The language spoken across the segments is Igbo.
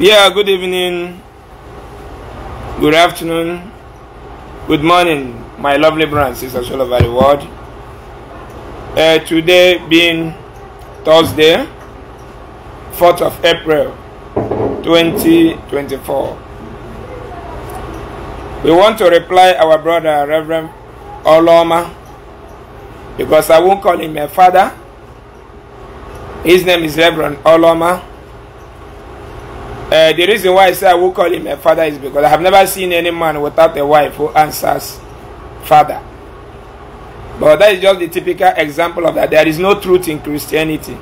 Yeah, good evening, good afternoon, good morning, my lovely brothers and sisters all over the world. Uh, today being Thursday, 4th of April 2024. We want to reply our brother, Reverend Oloma, because I won't call him a father. His name is Reverend Oloma. Uh, the reason why I say I will call him a father is because I have never seen any man without a wife who answers father. But that is just the typical example of that. There is no truth in Christianity.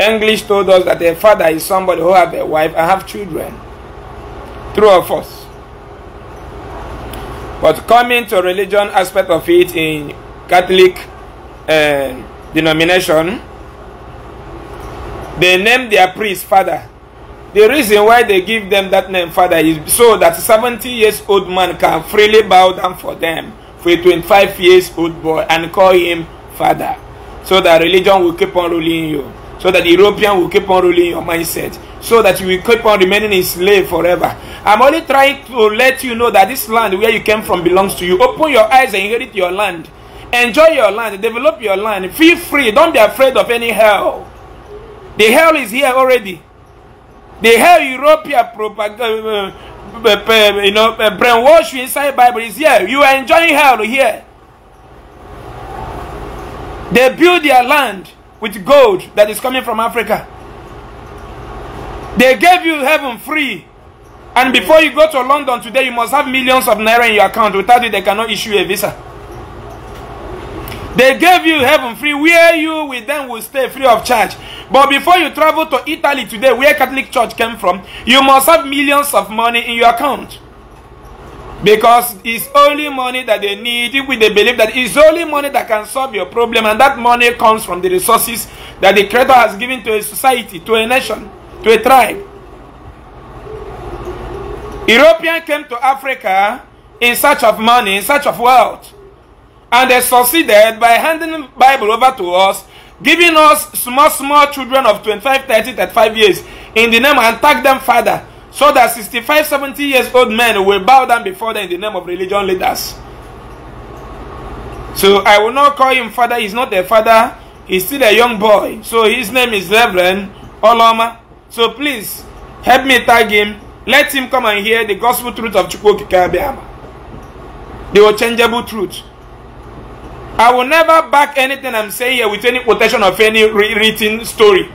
English told us that a father is somebody who have a wife and have children. True or false? But coming to religion aspect of it in Catholic uh, denomination, they name their priest father. The reason why they give them that name father is so that 70 years old man can freely bow down for them for a 25 years old boy and call him father. So that religion will keep on ruling you. So that the European will keep on ruling your mindset. So that you will keep on remaining a slave forever. I'm only trying to let you know that this land where you came from belongs to you. Open your eyes and inherit your land. Enjoy your land. Develop your land. Feel free. Don't be afraid of any hell. The hell is here already. The hell European propaganda, uh, uh, uh, you know, brainwash inside Bible is here. You are enjoying hell here. They build their land with gold that is coming from Africa. They gave you heaven free. And before you go to London today, you must have millions of naira in your account. Without it, they cannot issue a visa. They gave you heaven free, where you with them will stay free of charge. But before you travel to Italy today, where Catholic Church came from, you must have millions of money in your account. Because it's only money that they need with the belief that it's only money that can solve your problem. And that money comes from the resources that the Creator has given to a society, to a nation, to a tribe. European came to Africa in search of money, in search of wealth and they succeeded by handing Bible over to us, giving us small, small children of 25, 30, 35 years in the name and tag them father, so that 65, 70 years old men will bow down before them in the name of religion leaders. So I will not call him father, he's not a father, he's still a young boy. So his name is Reverend Oloma. So please help me tag him. Let him come and hear the gospel truth of Chukwu Kikabiama. The unchangeable truth. I will never back anything I'm saying here with any quotation of any written story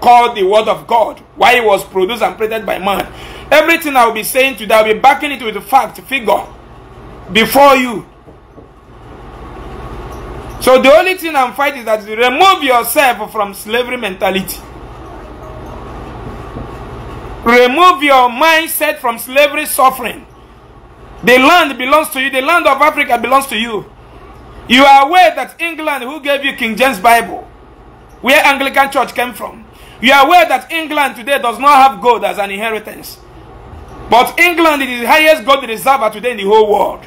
called the Word of God, why it was produced and printed by man. Everything I will be saying today, I'll be backing it with the fact, figure, before you. So the only thing I'm fighting is that you remove yourself from slavery mentality. Remove your mindset from slavery suffering. The land belongs to you. The land of Africa belongs to you. You are aware that England, who gave you King James Bible, where Anglican Church came from, you are aware that England today does not have gold as an inheritance. But England is the highest gold reserve today in the whole world.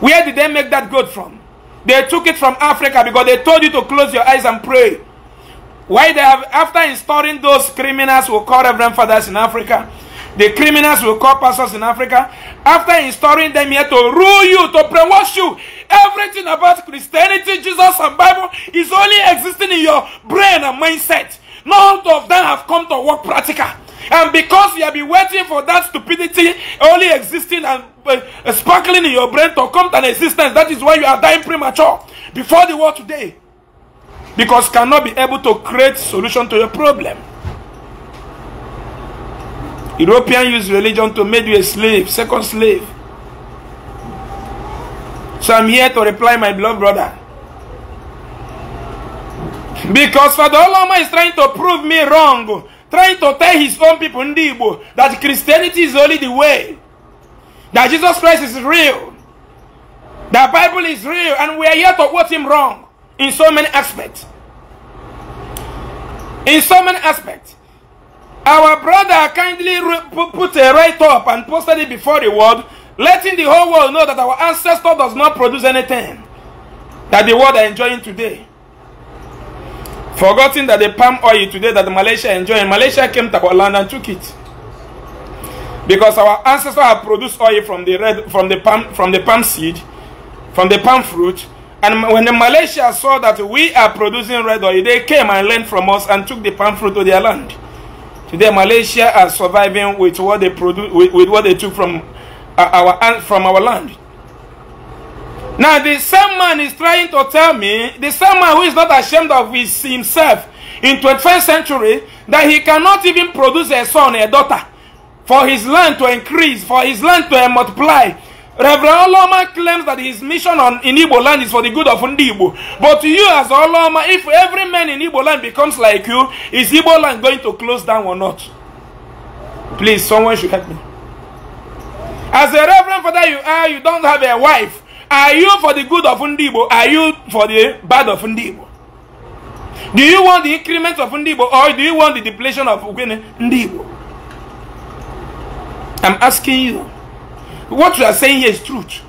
Where did they make that gold from? They took it from Africa because they told you to close your eyes and pray. Why they have, after installing those criminals who call Reverend Fathers in Africa, The criminals will call pastors in Africa after installing them here to rule you, to brainwash you. Everything about Christianity, Jesus, and Bible is only existing in your brain and mindset. None of them have come to work practical. And because you have been waiting for that stupidity only existing and uh, sparkling in your brain to come to an existence, that is why you are dying premature before the world today. Because cannot be able to create solution to your problem. European use religion to make you a slave, second slave. So I'm here to reply, my beloved brother. Because Father Olama is trying to prove me wrong, trying to tell his own people, Ndibo, that Christianity is only the way, that Jesus Christ is real, that Bible is real, and we are here to quote him wrong in so many aspects. In so many aspects. Our brother kindly put a write up and posted it before the world, letting the whole world know that our ancestor does not produce anything that the world are enjoying today. Forgetting that the palm oil today that Malaysia enjoying, Malaysia came to our land and took it. Because our ancestors have produced oil from the red, from the palm, from the palm seed, from the palm fruit, and when the Malaysia saw that we are producing red oil, they came and learned from us and took the palm fruit to their land. Today, Malaysia are surviving with what they produce, with, with what they took from uh, our uh, from our land. Now, the same man is trying to tell me, the same man who is not ashamed of his, himself in 21st century, that he cannot even produce a son, a daughter, for his land to increase, for his land to multiply, Reverend Oloma claims that his mission on, in Igbo land is for the good of Ndi But you as Oloma, if every man in Igbo land becomes like you, is Igbo land going to close down or not? Please, someone should help me. As a reverend father you are, you don't have a wife. Are you for the good of Ndibo? Are you for the bad of Ndibo? Do you want the increment of Ndibo or do you want the depletion of Ndibo? I'm asking you. what you are saying here is truth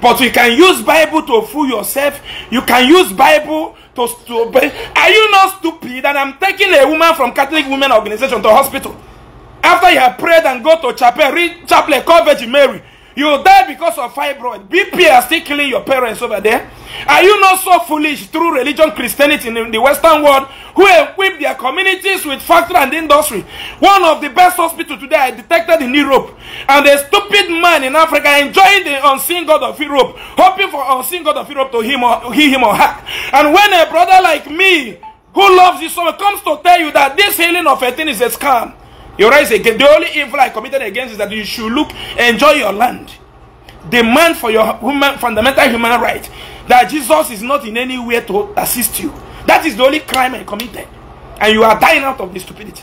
but you can use bible to fool yourself you can use bible to, obey are you not stupid and i'm taking a woman from catholic women organization to hospital after you have prayed and go to chapel read chapel call virgin mary You die because of fibroid. BP are still killing your parents over there. Are you not so foolish through religion, Christianity in the Western world, who equip their communities with factory and industry? One of the best hospitals today I detected in Europe. And a stupid man in Africa enjoying the unseen God of Europe, hoping for unseen God of Europe to him or, heal him or her. And when a brother like me, who loves you so comes to tell you that this healing of a thing is a scam, you rise again. The only evil I committed against is that you should look, enjoy your land. Demand for your human, fundamental human right that Jesus is not in any way to assist you. That is the only crime I committed. And you are dying out of the stupidity.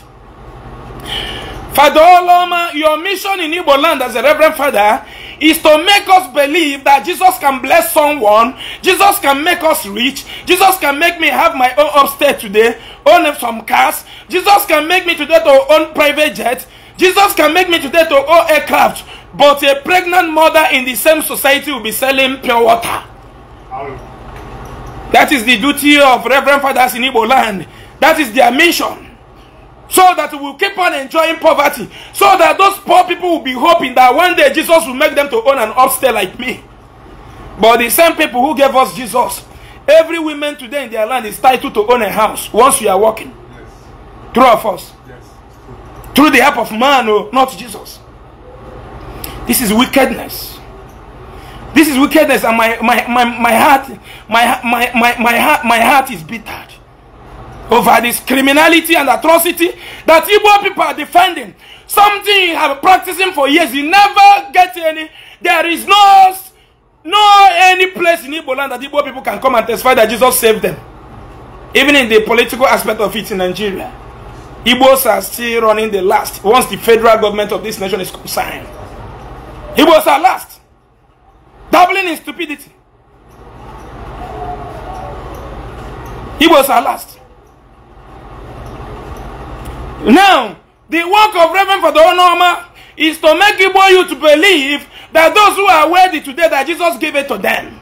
Father Oloma, oh your mission in Igbo land as a Reverend Father is to make us believe that Jesus can bless someone, Jesus can make us rich, Jesus can make me have my own upstairs today, own some cars, Jesus can make me today to own private jet, Jesus can make me today to own aircraft, but a pregnant mother in the same society will be selling pure water. That is the duty of Reverend Fathers in Igbo land. That is their mission. so that we will keep on enjoying poverty, so that those poor people will be hoping that one day Jesus will make them to own an upstairs like me. But the same people who gave us Jesus, every woman today in their land is titled to own a house once you are working. Yes. Through of us. Yes. Through the help of man, oh, not Jesus. This is wickedness. This is wickedness, and my, my, my, my heart, my, my, my, my, heart, my heart is bitter. over this criminality and atrocity that Igbo people are defending. Something you have practicing for years, you never get any. There is no, no any place in Igbo land that Igbo people can come and testify that Jesus saved them. Even in the political aspect of it in Nigeria, Igbos are still running the last once the federal government of this nation is signed. Igbos are last, doubling in stupidity. Igbos are last. Now, the work of Reverend Father Onoma is to make Igbo you to believe that those who are worthy today, that Jesus gave it to them.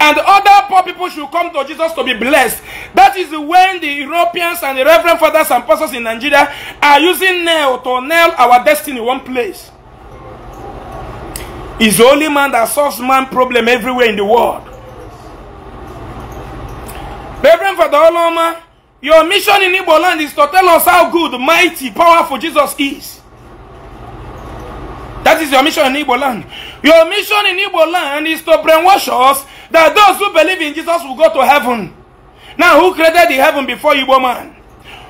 And other poor people should come to Jesus to be blessed. That is when the Europeans and the Reverend Fathers and Pastors in Nigeria are using nail to nail our destiny one place. It's the only man that solves man problem everywhere in the world. Reverend Father Oloma Your mission in Igbo land is to tell us how good, mighty, powerful Jesus is. That is your mission in Igbo land. Your mission in Igbo land is to brainwash us that those who believe in Jesus will go to heaven. Now, who created the heaven before Igbo man?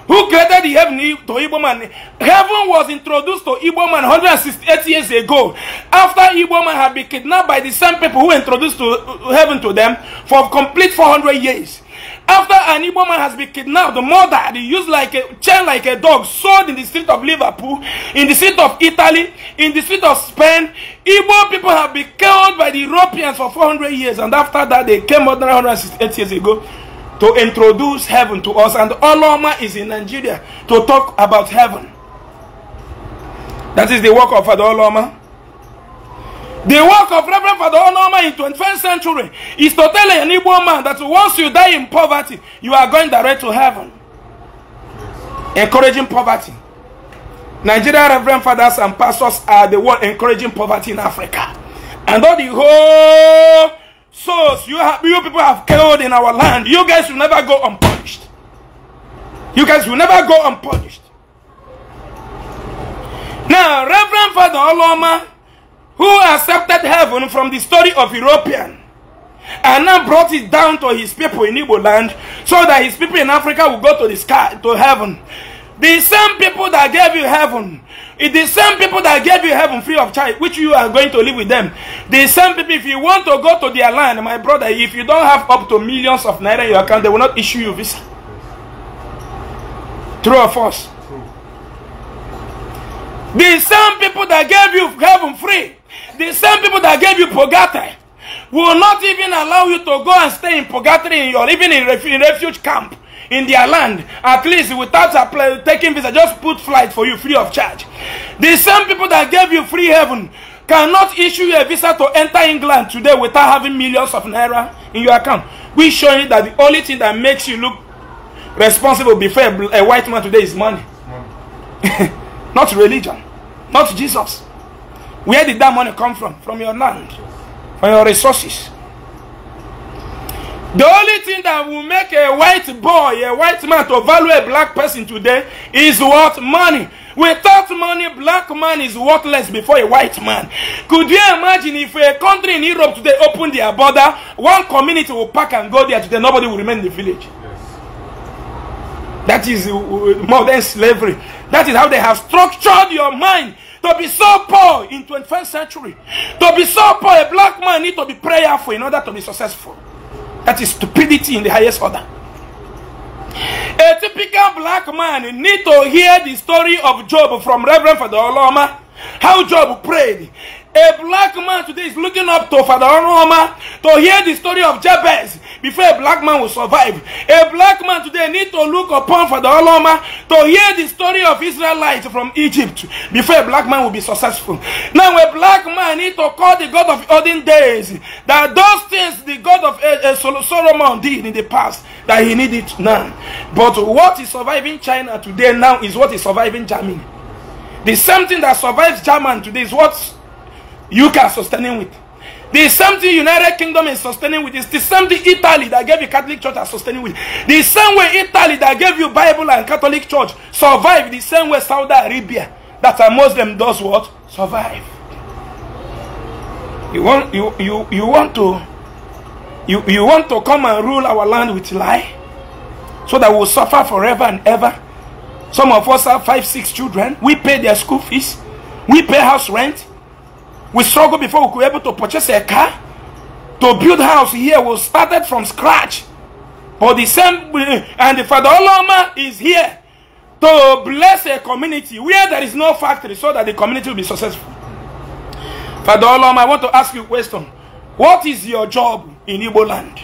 Who created the heaven to Igbo man? Heaven was introduced to Igbo man 168 years ago after Igbo man had been kidnapped by the same people who introduced to uh, heaven to them for complete 400 years. After an Igbo man has been kidnapped, the mother murdered, used like a chain like a dog, sold in the street of Liverpool, in the street of Italy, in the street of Spain, Igbo people have been killed by the Europeans for 400 years, and after that they came more than 168 years ago to introduce heaven to us, and Oloma is in Nigeria to talk about heaven. That is the work of Father Oloma. The work of Reverend Father Onoma in 21st century is to tell an Igbo man that once you die in poverty, you are going direct to heaven. Encouraging poverty. Nigerian Reverend Fathers and pastors are the one encouraging poverty in Africa. And all the whole souls you, have, you people have killed in our land, you guys will never go unpunished. You guys will never go unpunished. Now, Reverend Father Oloma who accepted heaven from the story of European and now brought it down to his people in Igbo land so that his people in Africa will go to the sky to heaven. The same people that gave you heaven, the same people that gave you heaven free of charge, which you are going to live with them. The same people, if you want to go to their land, my brother, if you don't have up to millions of naira in your account, they will not issue you visa. True or false? True. The same people that gave you heaven free, The same people that gave you purgatory will not even allow you to go and stay in purgatory in your, even in, ref, in refuge camp in their land, at least without taking visa, just put flight for you free of charge. The same people that gave you free heaven cannot issue you a visa to enter England today without having millions of naira in your account. We show you that the only thing that makes you look responsible before a, a white man today is money. money. not religion, not Jesus. Where did that money come from? From your land, from your resources. The only thing that will make a white boy, a white man to value a black person today is what? Money. Without money, black man is worthless before a white man. Could you imagine if a country in Europe today opened their border, one community will pack and go there today, nobody will remain in the village. That is uh, modern slavery. That is how they have structured your mind to be so poor in 21st century, to be so poor, a black man need to be prayerful in order to be successful. That is stupidity in the highest order. A typical black man need to hear the story of Job from Reverend Father Oloma. How Job prayed. A black man today is looking up to Father Oloma to hear the story of Jabez. before a black man will survive. A black man today need to look upon for the Oloma to hear the story of Israelites from Egypt before a black man will be successful. Now a black man need to call the God of olden days that those things the God of eh, eh, Solomon did in the past that he needed now. But what is surviving China today now is what is surviving Germany. The same thing that survives German today is what you can sustaining with. The same thing United Kingdom is sustaining with. is the same thing Italy that gave you Catholic Church are sustaining with. The same way Italy that gave you Bible and Catholic Church survive. The same way Saudi Arabia that a Muslim does what? Survive. You want you you you want to you you want to come and rule our land with lie, so that we'll suffer forever and ever. Some of us have five six children. We pay their school fees. We pay house rent. We struggled before we were able to purchase a car, to build house here. We started from scratch. But the same, and the Father Oloma is here to bless a community where there is no factory so that the community will be successful. Father Oloma, I want to ask you a question. What is your job in Igbo land?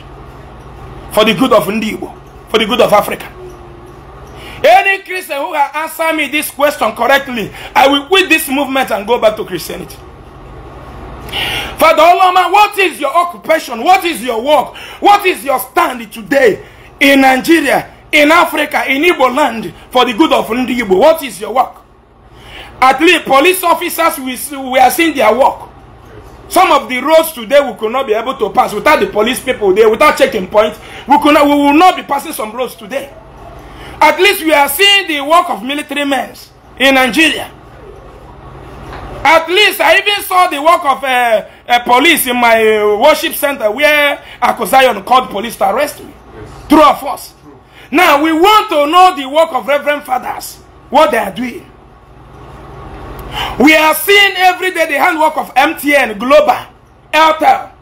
For the good of Ndibo, for the good of Africa. Any Christian who has answered me this question correctly, I will quit this movement and go back to Christianity. Father Oloma, what is your occupation? What is your work? What is your stand today in Nigeria, in Africa, in Igbo land for the good of Ndi Igbo? What is your work? At least police officers, we, we are seeing their work. Some of the roads today we could not be able to pass without the police people there, without checking points. We, could not, we will not be passing some roads today. At least we are seeing the work of military men in Nigeria. At least I even saw the work of a uh, uh, police in my uh, worship center where Akosayon called police to arrest me. Yes. True of us. Now we want to know the work of Reverend Fathers, what they are doing. We are seeing every day the handwork of MTN, Global, Airtel.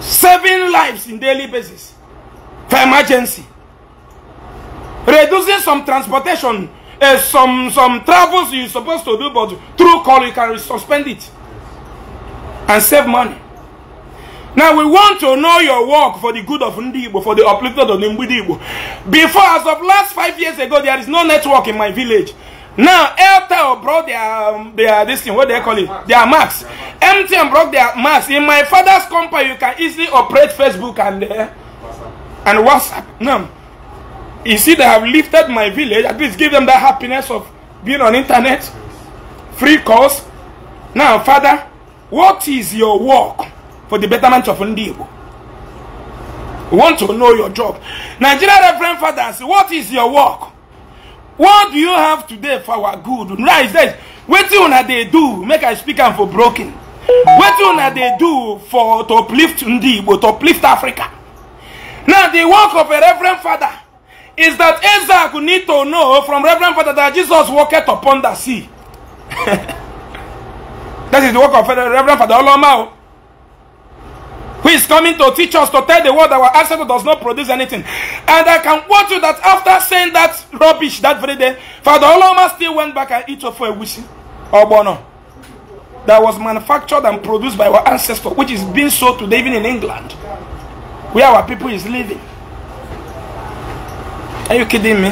Saving lives in daily basis for emergency. Reducing some transportation uh, some some travels you're supposed to do, but through call you can suspend it and save money. Now we want to know your work for the good of Ndibo, for the uplifted of Ndibo. Before, as of last five years ago, there is no network in my village. Now, Airtel brought their, um, their this thing, what they call it, their max. MTN brought their max. In my father's company, you can easily operate Facebook and uh, and WhatsApp. No. You see, that I have lifted my village. At least give them that happiness of being on internet, free course. Now, Father, what is your work for the betterment of Ndibo? We want to know your job. Nigeria Reverend Fathers, what is your work? What do you have today for our good? Right, that wetin una they do make I speak and for broken. Wetin una they do for to uplift Ndi to uplift Africa? Now the work of a Reverend Father is that Isaac need to know from Reverend Father that Jesus walketh upon the sea. that is the work of Reverend Father Olomao, oh. who is coming to teach us to tell the world that our ancestor does not produce anything. And I can warn you that after saying that rubbish that very day, Father Oloma still went back and ate for a wishing or bono that was manufactured and produced by our ancestor, which is being sold today even in England, where our people is living. Are you kidding me?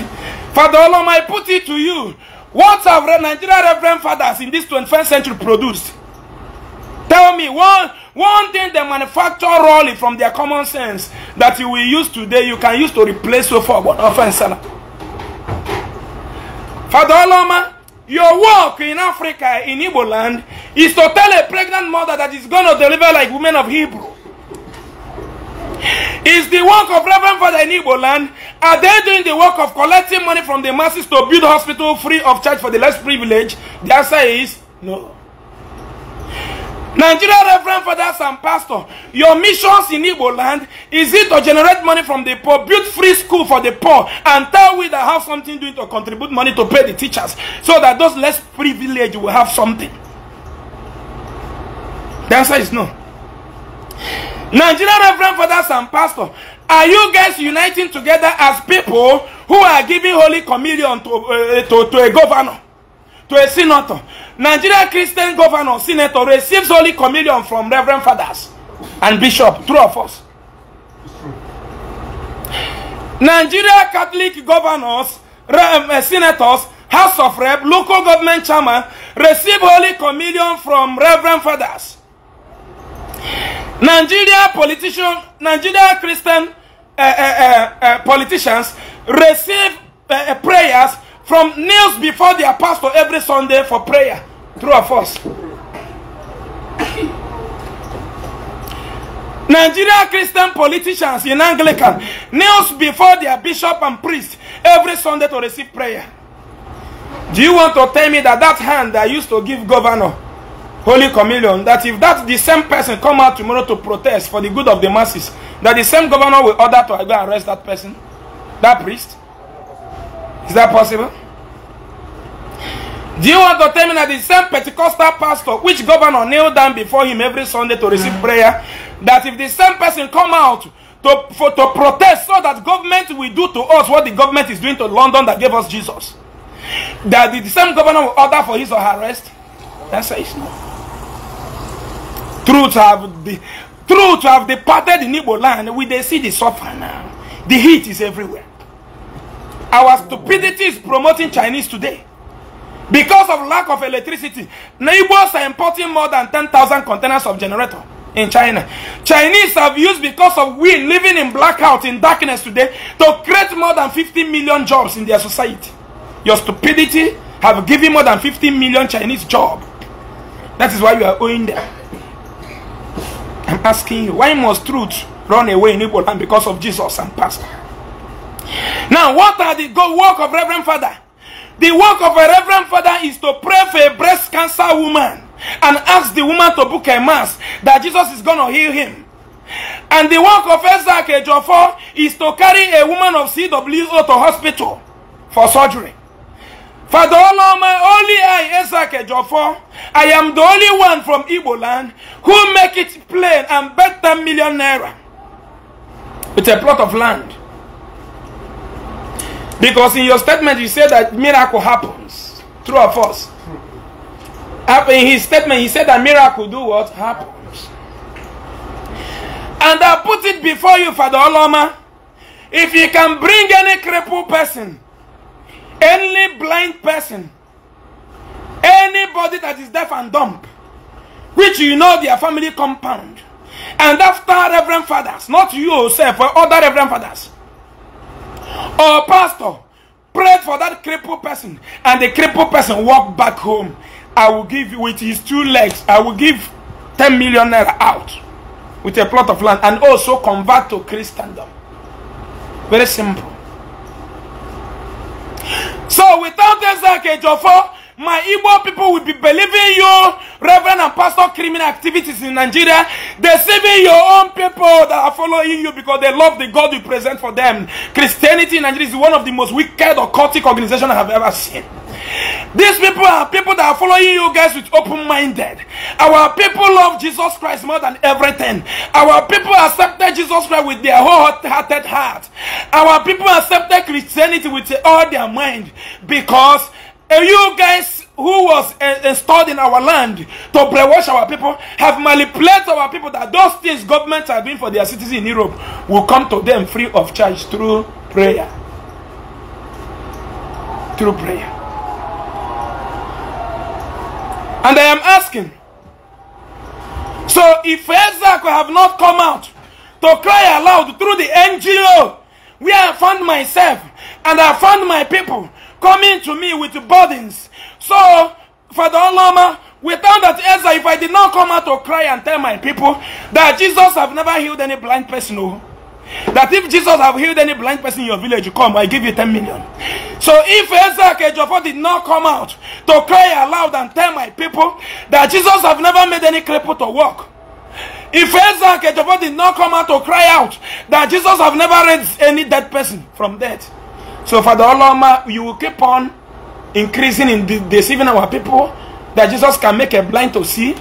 Father Olom, I put it to you. What have Nigerian Reverend Fathers in this 21st century produced? Tell me, one, one thing they manufacture wrongly from their common sense that you will use today, you can use to replace so far one offense. Father Oloma, your work in Africa, in Igbo land, is to tell a pregnant mother that is going to deliver like women of Hebrew. Is the work of Reverend Father in Igbo land? Are they doing the work of collecting money from the masses to build hospital free of charge for the less privileged? The answer is no. Nigeria Reverend Fathers and Pastor, your missions in Igbo land, is it to generate money from the poor, build free school for the poor, and tell we that have something doing to contribute money to pay the teachers, so that those less privileged will have something? The answer is no. Nigerian Reverend Fathers and Pastor, are you guys uniting together as people who are giving Holy Communion to, uh, to, to a governor, to a senator? Nigerian Christian governor, senator receives Holy Communion from Reverend Fathers and Bishop, true of us. Nigeria Catholic governors, eh, eh, senators, House of Rep, local government chairman receive Holy Communion from Reverend Fathers. Nigeria politician, Nigeria Christian uh, uh, uh, politicians receive eh, eh, prayers from kneels before their pastor every Sunday for prayer. True or false? Nigeria Christian politicians in Anglican kneels before their bishop and priest every Sunday to receive prayer. Do you want to tell me that that hand I used to give governor Holy Communion, that if that the same person come out tomorrow to protest for the good of the masses, that the same governor will order to go arrest that person, that priest? Is that possible? Do you want to tell me that the same Pentecostal pastor, which governor kneel down before him every Sunday to receive prayer, that if the same person come out to, for, to protest so that government will do to us what the government is doing to London that gave us Jesus, that the same governor will order for his or her arrest? That's says no. Truth have, the, truth have departed in Igbo land. We they see the suffer now. The heat is everywhere. Our stupidity is promoting Chinese today. Because of lack of electricity, neighbors are importing more than 10,000 containers of generator in China. Chinese have used because of we living in blackout, in darkness today, to create more than 50 million jobs in their society. Your stupidity have given more than 50 million Chinese jobs. That is why you are owing them. I'm asking you, why must truth run away in Igbo land because of Jesus and pastor? Now, what are the good work of Reverend Father? The work of a Reverend Father is to pray for a breast cancer woman and ask the woman to book a mass that Jesus is going to heal him. And the work of Isaac Ejofo is to carry a woman of CWO to hospital for surgery. Father Oloma, only I, Isaac Ejofo, I am the only one from Igbo land who make it plain and bet better millionaire with a plot of land. Because in your statement you said that miracle happens. True or false? In his statement he said that miracle do what? Happens. And I put it before you, Father Oloma. If you can bring any crippled person any blind person, anybody that is deaf and dumb, which you know their family compound, and after Reverend Fathers, not you yourself oh, or other Reverend Fathers, or Pastor, prayed for that crippled person, and the crippled person walked back home. I will give you with his two legs, I will give 10 million naira out with a plot of land and also convert to Christendom. Very simple. So without Ezekiel Jofo, my Igbo people will be believing you, Reverend and Pastor, criminal activities in Nigeria, deceiving your own people that are following you because they love the God you present for them. Christianity in Nigeria is one of the most wicked occultic organizations I have ever seen. These people are people that are following you guys with open minded. Our people love Jesus Christ more than everything. Our people accepted Jesus Christ with their hearted heart. Our people accepted Christianity with all their mind because eh, you guys who was installed eh, eh, in our land to brainwash our people have manipulated our people that those things governments are doing for their citizens in Europe will come to them free of charge through prayer. Through prayer. And I am asking. So if Ezak have not come out to cry aloud through the NGO where I found myself and I found my people coming to me with burdens. So, Father Oloma, without that Ezra, if I did not come out to cry and tell my people that Jesus have never healed any blind person, no. Oh, that if Jesus have healed any blind person in your village, come, I give you 10 million. So if Ezra Kejofo did not come out to cry aloud and tell my people that Jesus have never made any cripple to walk, if Ezra Kejofo did not come out to cry out that Jesus have never raised any dead person from death, so Father Oloma, you will keep on increasing in deceiving our people that Jesus can make a blind to see,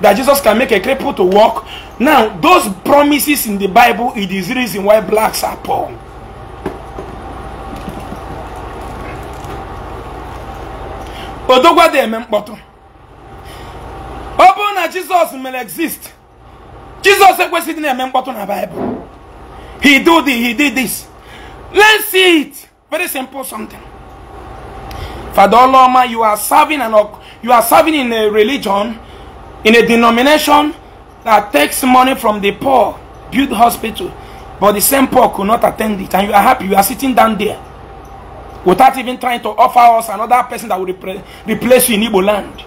that Jesus can make a cripple to walk. Now, those promises in the Bible, it is the reason why blacks are poor. Odogwa dị eme mkpọtụ. na Jesus mere exist, jesus ekwesịghị na na Bible. He do di he did this. Let's see it. Very simple something. Father Oloma, you are serving an, you are serving in a religion in a denomination that takes money from the poor, build hospital, but the same poor could not attend it, and you are happy you are sitting down there without even trying to offer us another person that will repre- replace you in Igbo land.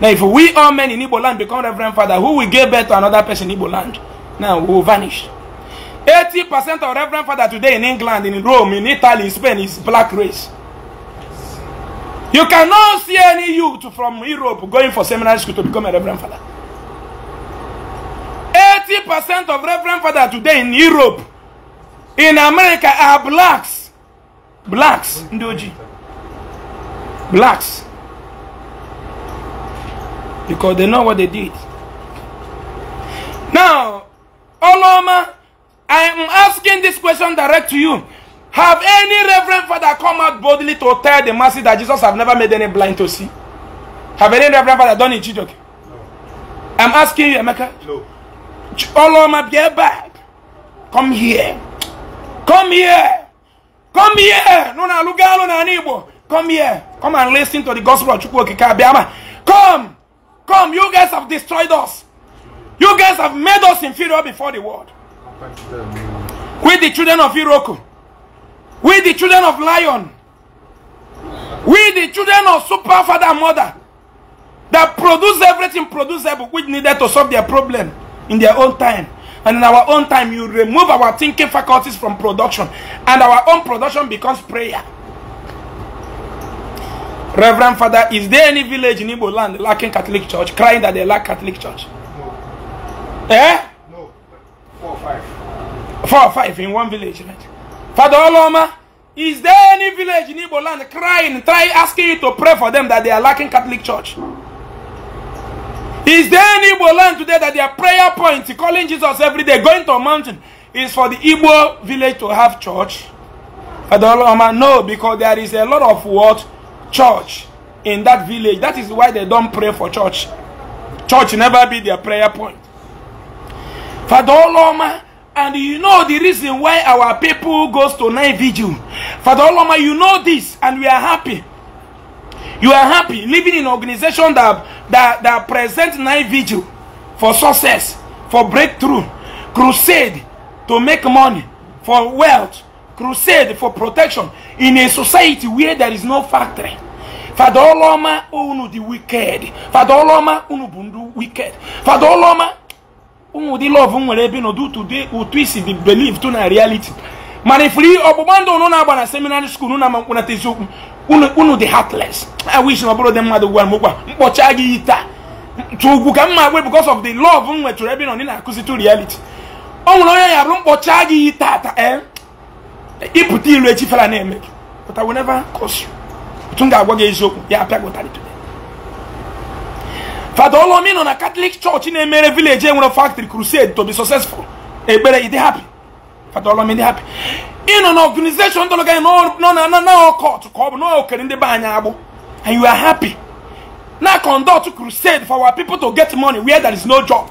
Now, if we all men in Igbo land become Reverend Father, who will give birth to another person in Igbo land? Now, we will vanish. 80% of Reverend Father today in England, in Rome, in Italy, in Spain is black race. You cannot see any youth from Europe going for seminary school to become a reverend father. 80% of reverend father today in Europe, in America, are blacks. Blacks, Ndoji. Blacks. Because they know what they did. Now, Oloma, I am asking this question direct to you. Have any reverend father come out boldly to tell the masses that Jesus have never made any blind to see? Have any reverend father done it, Chijoke? No. I'm asking you, Emeka. No. Oloma, get back. Come here. Come here. Come here. No, no, look out Come here. Come and listen to the gospel of Chukwoke Kabiama. Come. Come. You guys have destroyed us. You guys have made us inferior before the world. Quit the children of Iroko. We the children of lion. We the children of super father and mother that produce everything producible which needed to solve their problem in their own time. And in our own time, you remove our thinking faculties from production. And our own production becomes prayer. Reverend Father, is there any village in Igbo land lacking Catholic Church, crying that they lack Catholic Church? No. Eh? No. Four or five. Four or five in one village, right? Father Oloma, is there any village in Igbo land crying, trying, asking you to pray for them that they are lacking Catholic Church? Is there any Igbo land today that their prayer point, calling Jesus every day, going to a mountain, is for the Igbo village to have church? Father Oloma, no, because there is a lot of what? Church in that village. That is why they don't pray for church. Church never be their prayer point. Father Oloma, And you know the reason why our people goes to night vigil. Father Oloma, you know this and we are happy. You are happy living in organization that, that, that present night vigil for success, for breakthrough, crusade to make money, for wealth, crusade for protection in a society where there is no factory. Father Oloma, unu the wicked. Father Oloma, unu bundu wicked. Father Oloma, ụmụ ụdị lọv nwere ebe n'ụdị ụtụ isi dị believe to na reality mana ifuri ọgbụgba ndụ unu na-agba na seminary seminarị skuul na mkpụnata eziokwu unu dị heartless i wish na ọ bụrụ dị mmadụ gwara m ụkwa mkpọcha gị taa tụ ugwu ka mma gwe because of the love m nwetụrụ ebe nọ ndị na-akụzi to reality ọ nwere onye ya bụrụ mkpọcha gị tata eh? ịpụta ilu echifera na-eme gị but I will never curse you otu m ga-agwa gị eziokwu ya apịa gị ụtarị gụtarị Fada olomino na Catholic Church na-emere village enwere eh, factory crusade to be successful ekpere e dey happy Fada olomino dey happy ịnọ na organization n'o n'o n'o n'ọkọt ka ọ bụ n'okere ndị be anyị agbụ and you are happy na conduct crusade for our people to get money where there is no job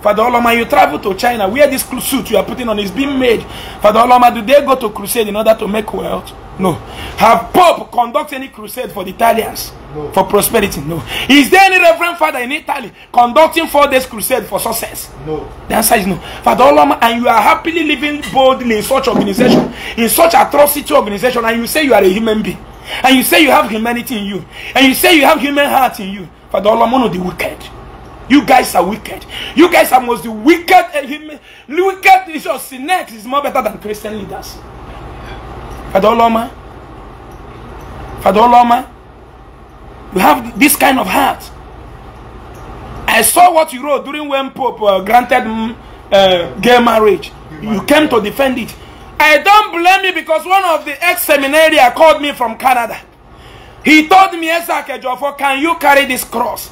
Father Oloma, you travel to China where this suit you are putting on is being made. Father Oloma, do they go to crusade in order to make wealth? No. Have Pope conduct any crusade for the Italians? No. For prosperity? No. Is there any Reverend Father in Italy conducting four days crusade for success? No. The answer is no. Father Oloma, and you are happily living boldly in such organization, in such atrocity organization, and you say you are a human being, and you say you have humanity in you, and you say you have human heart in you. Father Oloma, no, the wicked. You guys are wicked. You guys are most the wicked. Eh, wicked is your sinners is more better than Christian leaders. Father Oloma, Father Oloma, you have this kind of heart. I saw what you wrote during when Pope uh, granted mm, uh, gay marriage. You came to defend it. I don't blame you because one of the ex-seminarians called me from Canada. He told me, for can you carry this cross?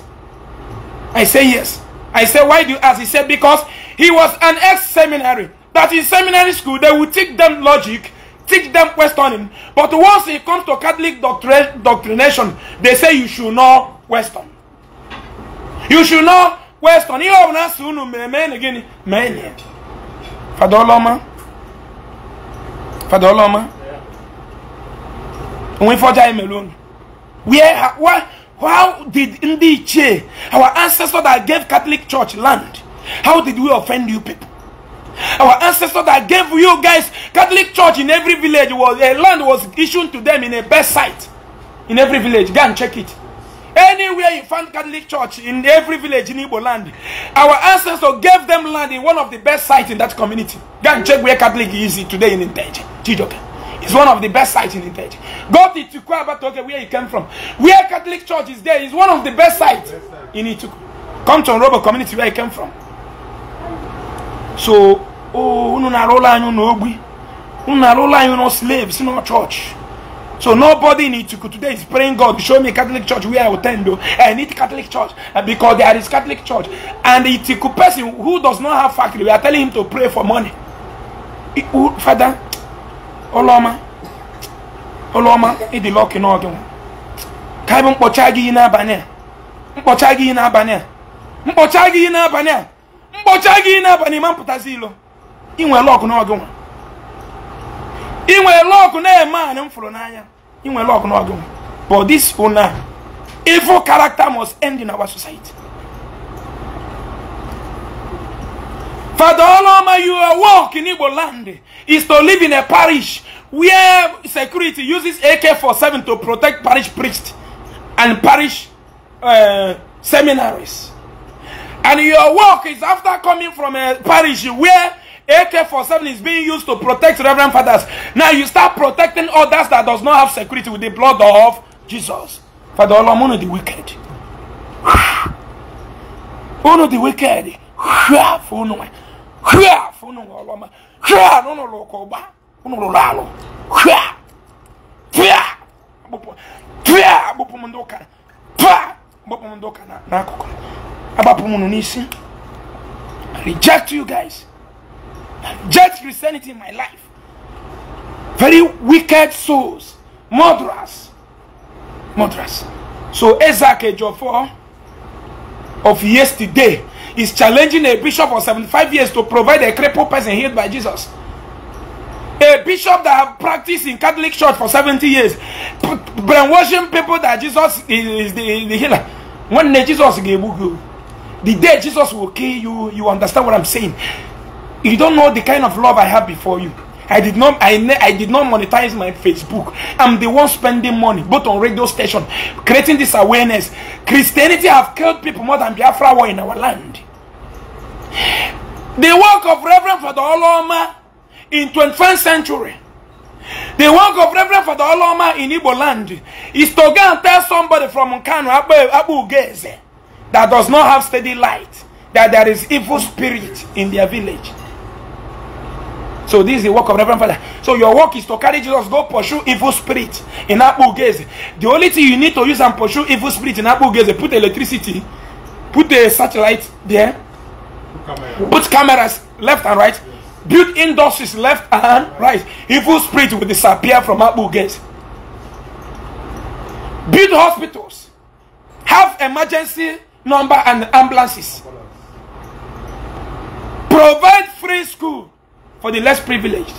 I say yes. I say, why do you ask? He said, because he was an ex-seminary. That in seminary school, they would teach them logic teach them questioning. But once it comes to Catholic doctrination, they say you should not question. You should not question. Ihe ọbụla asị unu mere mee na gịnị mee na Fada we Fada Ọlọma alone Where how did ndị ichie our ancestor that gave Catholic Church land how did we offend you people? Our ancestor that gave you guys Catholic church in every village was a land was issued to them in a best site in every village. Go and check it. Anywhere you find Catholic church in every village in Igbo land, our ancestor gave them land in one of the best sites in that community. Go and check where Catholic is today in Inteje. It's one of the best sites in Inteje. Go to Ituku Abatoke where you came from. Where Catholic church is there is one of the best sites in Ituku. Come to Robo community where you came from. so unu na-arụ ụlọ anyị ụlọ ogbi unu na-arụ ụlọ anyị ụlọ slaves no church so nobody in Ituku today is praying God show me Catholic church where I will attend though I need Catholic church uh, because there is Catholic church and the Ituku person who does not have factory we are telling him to pray for money Father Oloma Oloma ịdị lucky n'oge ka bụ mkpọcha gị n'abalị a mkpọcha gị n'abalị a mkpọcha gị n'abalị a mkpọcha gị n'abalị ma mpụtazi ilo inwere lọkụ n'ọgụ nwa inwe lọkụ na-eme anyị m fụrụ n'anya inwere lọkụ n'ọgụ nwa but this una evil character must end in our society Father Oloma, your work in Igbo land is to live in a parish where security uses AK-47 to protect parish priests and parish uh, seminaries. And your work is after coming from a eh, parish where AK 47 is being used to protect Reverend Fathers. Now you start protecting others that does not have security with the blood of Jesus. Father Olamun the wicked. of the wicked. Uno abapomu no i reject you guys i reject christianity in my life very wicked souls murderers murderers so isaac ejofo of yesterday is challenging a bishop of 75 years to provide a crippled person healed by jesus a bishop that have practiced in Catholic Church for 70 years, brainwashing people that Jesus is, is the, the healer. When Jesus gave you, The day Jesus will kill you, you understand what I'm saying. You don't know the kind of love I have before you. I did not I, I did not monetize my Facebook. I'm the one spending money, both on radio station, creating this awareness. Christianity have killed people more than Biafra war in our land. The work of Reverend Father Oloma in 21st century the work of Reverend Father Oloma in Igbo land is to go and tell somebody from Nkanu Abu Ugeze that does not have steady light, that there is evil spirit in their village. So this is the work of Reverend Father. So your work is to carry Jesus, go pursue evil spirit in Abugeze. The only thing you need to use and pursue evil spirit in is put electricity, put the satellite there, Camera. put cameras left and right, yes. build industries left and right. Evil spirit will disappear from Abugeze. Build hospitals, have emergency number and ambulances. Provide free school for the less privileged.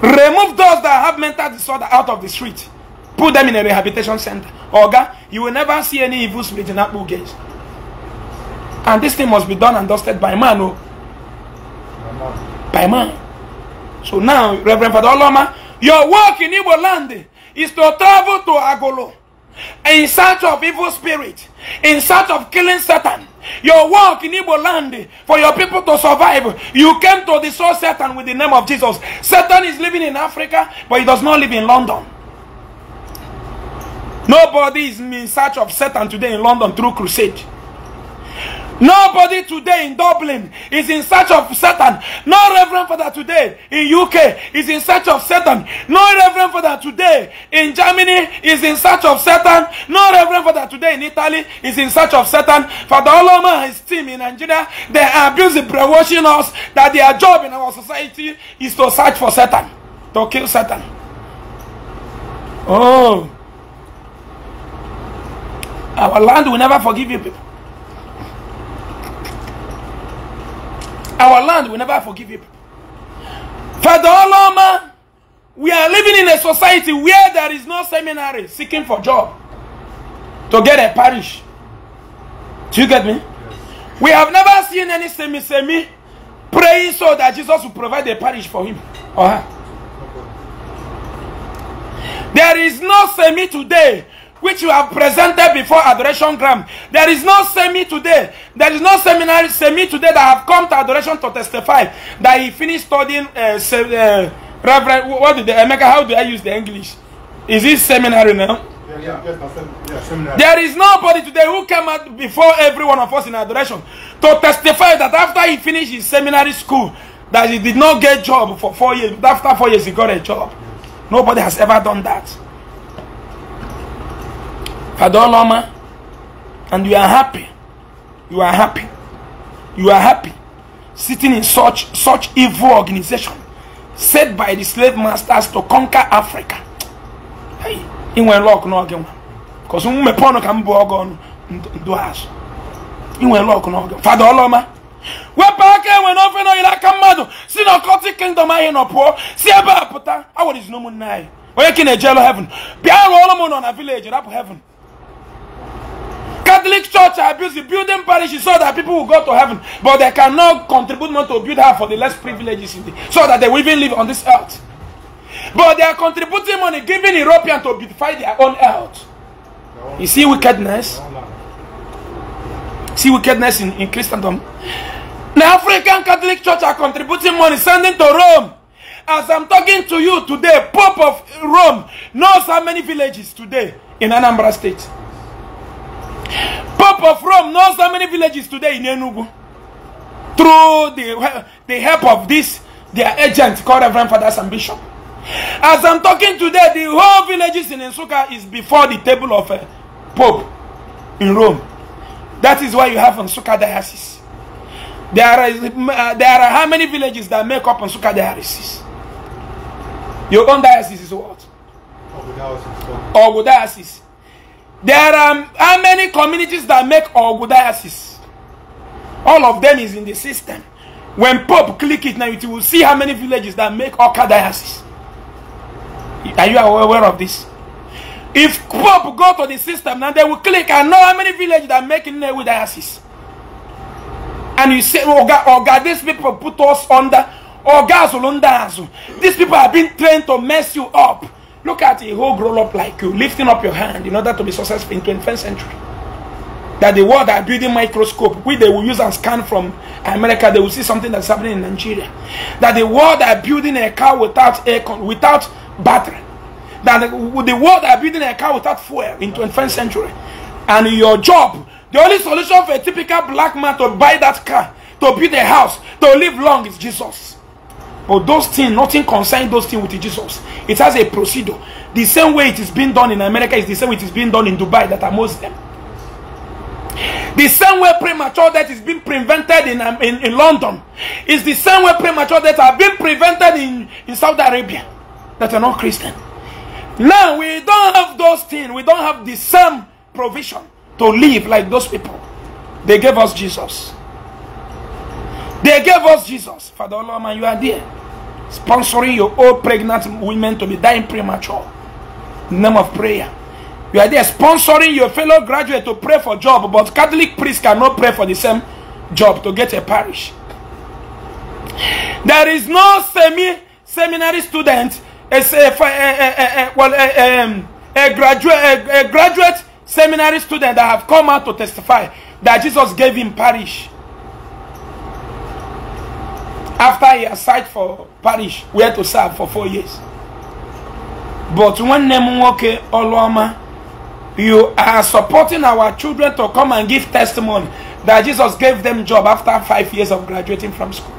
Remove those that have mental disorder out of the street. Put them in a rehabilitation center. Oga, you will never see any evil spirit in Apple gates. And this thing must be done and dusted by man. Oh. By man. So now, Reverend Father Oloma, your work in Igbo land is to travel to Agolo in search of evil spirit in search of killing Satan. Your work in Igbo land for your people to survive. You came to destroy Satan with the name of Jesus. Satan is living in Africa, but he does not live in London. Nobody is in search of Satan today in London through crusade. Nobody today in Dublin is in search of Satan. No Reverend Father today in UK is in search of Satan. No Reverend Father today in Germany is in search of Satan. No Reverend Father today in Italy is in search of Satan. Father Oloma and his team in Nigeria, they are busy brainwashing us that their job in our society is to search for Satan, to kill Satan. Oh. Our land will never forgive you people. Our land will never forgive you. Father Oloma, we are living in a society where there is no seminary seeking for job to get a parish. Do you get me? We have never seen any semi semi praying so that Jesus will provide a parish for him or her. There is no semi today which you have presented before Adoration Gram. There is no semi today. There is no seminary semi today that have come to Adoration to testify that he finished studying. Uh, se- uh, Reverend, what did the Emeka? How do I use the English? Is this seminary now? Yeah, yeah. Yes, yeah, there is nobody today who came out before every one of us in adoration to testify that after he finished his seminary school, that he did not get job for four years. After four years, he got a job. Nobody has ever done that. Fadoloma, and you are happy. You are happy. You are happy sitting in such such evil organization set by the slave masters to conquer Africa. Hey, inwe luck n'oge nwa. Because mmepe ọnụ ka m bụ ọgụ ọnụ ndụ azụ. Inwe luck oloma Fada Ọlọma, wepụ aka enwe n'ofe n'oyiri aka mmadụ si na ọkọtị kingdom anyị nọ pụọ si ebe a pụta awụrụ izinụmụnne anyị onye ka na-ejelu heaven bịa rụọ ọrụ m nọ na village rapụ heaven Catholic Church I built the building parishes so that people will go to heaven, but they cannot contribute more to build her for the less privileged in the, so that they will even live on this earth. But they are contributing money, giving Europeans to beautify their own earth. You see wickedness? See wickedness in, in Christendom? The African Catholic Church are contributing money, sending to Rome. As I'm talking to you today, Pope of Rome knows how many villages today in Anambra State. People from knows how many villages today in Enugu. Through the, the help of this, their agent called Reverend Fathers Ambition. As I'm talking today, the whole villages in Ensuka is before the table of a uh, Pope in Rome. That is why you have Ensuka diocese. There are, uh, there are how many villages that make up Ensuka diocese? Your own diocese is what? Ogu diocese. There are how many communities that make orgodiasis? All of them is in the system. When Pope click it now, you will see how many villages that make orchodiasis. Are you aware of this? If Pope go to the system now, they will click and know how many villages that make Nnewi diocese. And you say, oh God, oh God, these people put us under, oh God, these people have been trained to mess you up. Look at a whole grown up like you lifting up your hand in order to be successful in 21st century. That the world are building microscope, which they will use and scan from America, they will see something that's happening in Nigeria. That the world are building a car without aircon, without battery. That the, the world are building a car without fuel in 21st century. And your job, the only solution for a typical black man to buy that car, to build a house, to live long is Jesus. But those things, nothing concerning those things with Jesus. It has a procedure. The same way it is being done in America is the same way it is being done in Dubai that are Muslim. The same way premature death is being prevented in, um, in, in London is the same way premature death are being prevented in, in Saudi Arabia that are not Christian. Now we don't have those things. We don't have the same provision to live like those people. They gave us Jesus. They gave us Jesus. Father Lord, man, you are there. Sponsoring your old pregnant women to be dying premature. name of prayer. You are there sponsoring your fellow graduate to pray for job, but Catholic priests cannot pray for the same job to get a parish. There is no semi seminary student, a, a, a, well, a, um, graduate, a, graduate seminary student that have come out to testify that Jesus gave him parish. after he aside for parish where to serve for four years but nwanne m nwoke oluoma you are supporting our children to come and give testimony that jesus gave them job after five years of graduating from school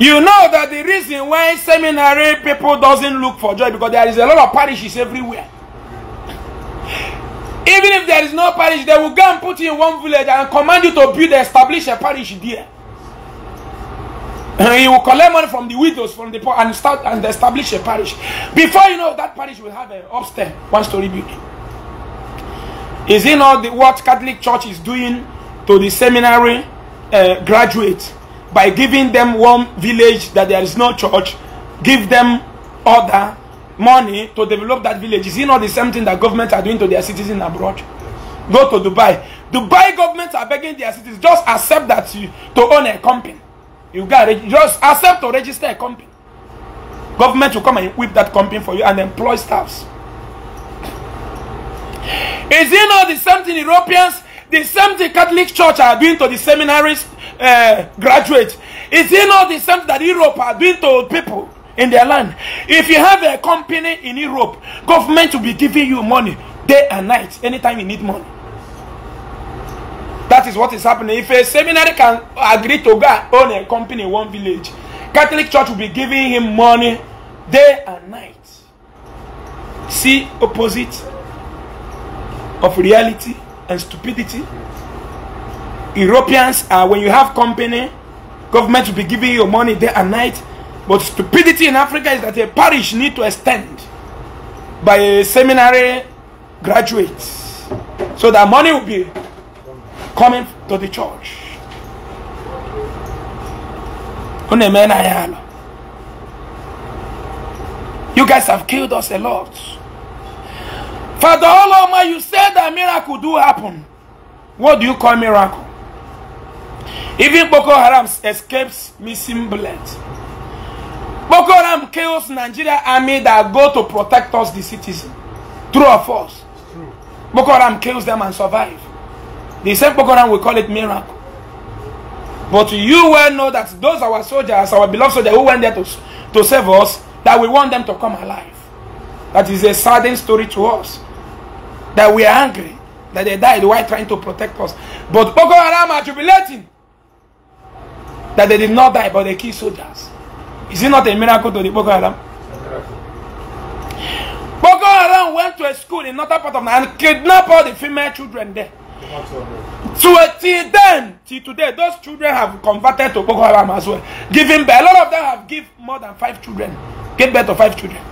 you know that the reason why seminary people doesn't look for joy because there is a lot of parishes everywhere even if there is no parish they will go and put you in one village and command you to build establish a parish there And he will collect money from the widows, from the poor, and start and establish a parish. Before you know, that parish will have an upstairs, one-story building. Is it not the, what Catholic Church is doing to the seminary uh, graduates by giving them one village that there is no church, give them other money to develop that village? Is it not the same thing that governments are doing to their citizens abroad? Go to Dubai. Dubai governments are begging their citizens just accept that you, to own a company. You got to just accept to register a company. Government will come and whip that company for you and employ staffs. Is it not the same thing Europeans, the same thing Catholic Church are doing to the seminaries uh, graduates? Is it not the same thing that Europe are doing to people in their land? If you have a company in Europe, government will be giving you money day and night anytime you need money. That is what is happening. If a seminary can agree to go own a company in one village, Catholic Church will be giving him money day and night. See opposite of reality and stupidity. Europeans are when you have company, government will be giving you money day and night. But stupidity in Africa is that a parish need to extend by a seminary graduates so that money will be coming to the church you guys have killed us a lot Father Oloma, you said that miracle do happen. What do you call miracle? Even Boko Haram escapes missing blood. Boko Haram kills Nigeria army that go to protect us, the citizen. True or false? True. Boko Haram kills them and survive. The same Boko Haram will call it miracle. But you well know that those our soldiers, our beloved soldiers who went there to, to save us, that we want them to come alive. That is a saddening story to us. That we are angry that they died while trying to protect us. But Boko Haram are jubilating that they did not die, but they killed soldiers. Is it not a miracle to the Boko Haram? Boko Haram went to a school in another part of Nigeria and kidnapped all the female children there. So till then, till today, those children have converted to Boko Haram as well. Giving birth. A lot of them have given more than five children. give birth to five children.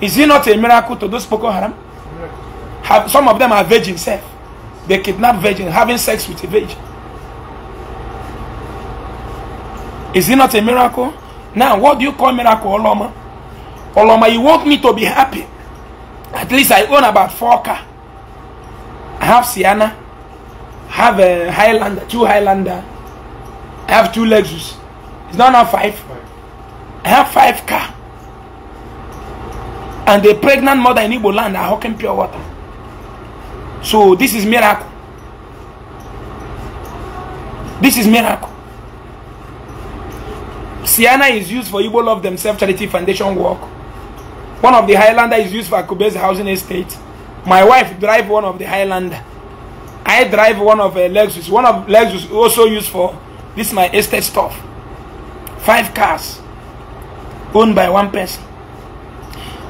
Is it not a miracle to those Boko Haram? Have, some of them are virgin self. They kidnap virgin, having sex with a virgin. Is it not a miracle? Now, what do you call miracle, Oloma? Oloma, you want me to be happy. At least I own about four car. I have Sienna. have a Highlander, two Highlander. I have two Lexus. It's not now five. I have five car. And the pregnant mother in Igbo land are hawking pure water. So this is miracle. This is miracle. Siana is used for Igbo Love Themselves Charity Foundation work. One of the Highlander is used for Akube's housing estate. My wife drive one of the Highlander. I drive one of a Lexus. One of Lexus also used for this my estate stuff. Five cars owned by one person.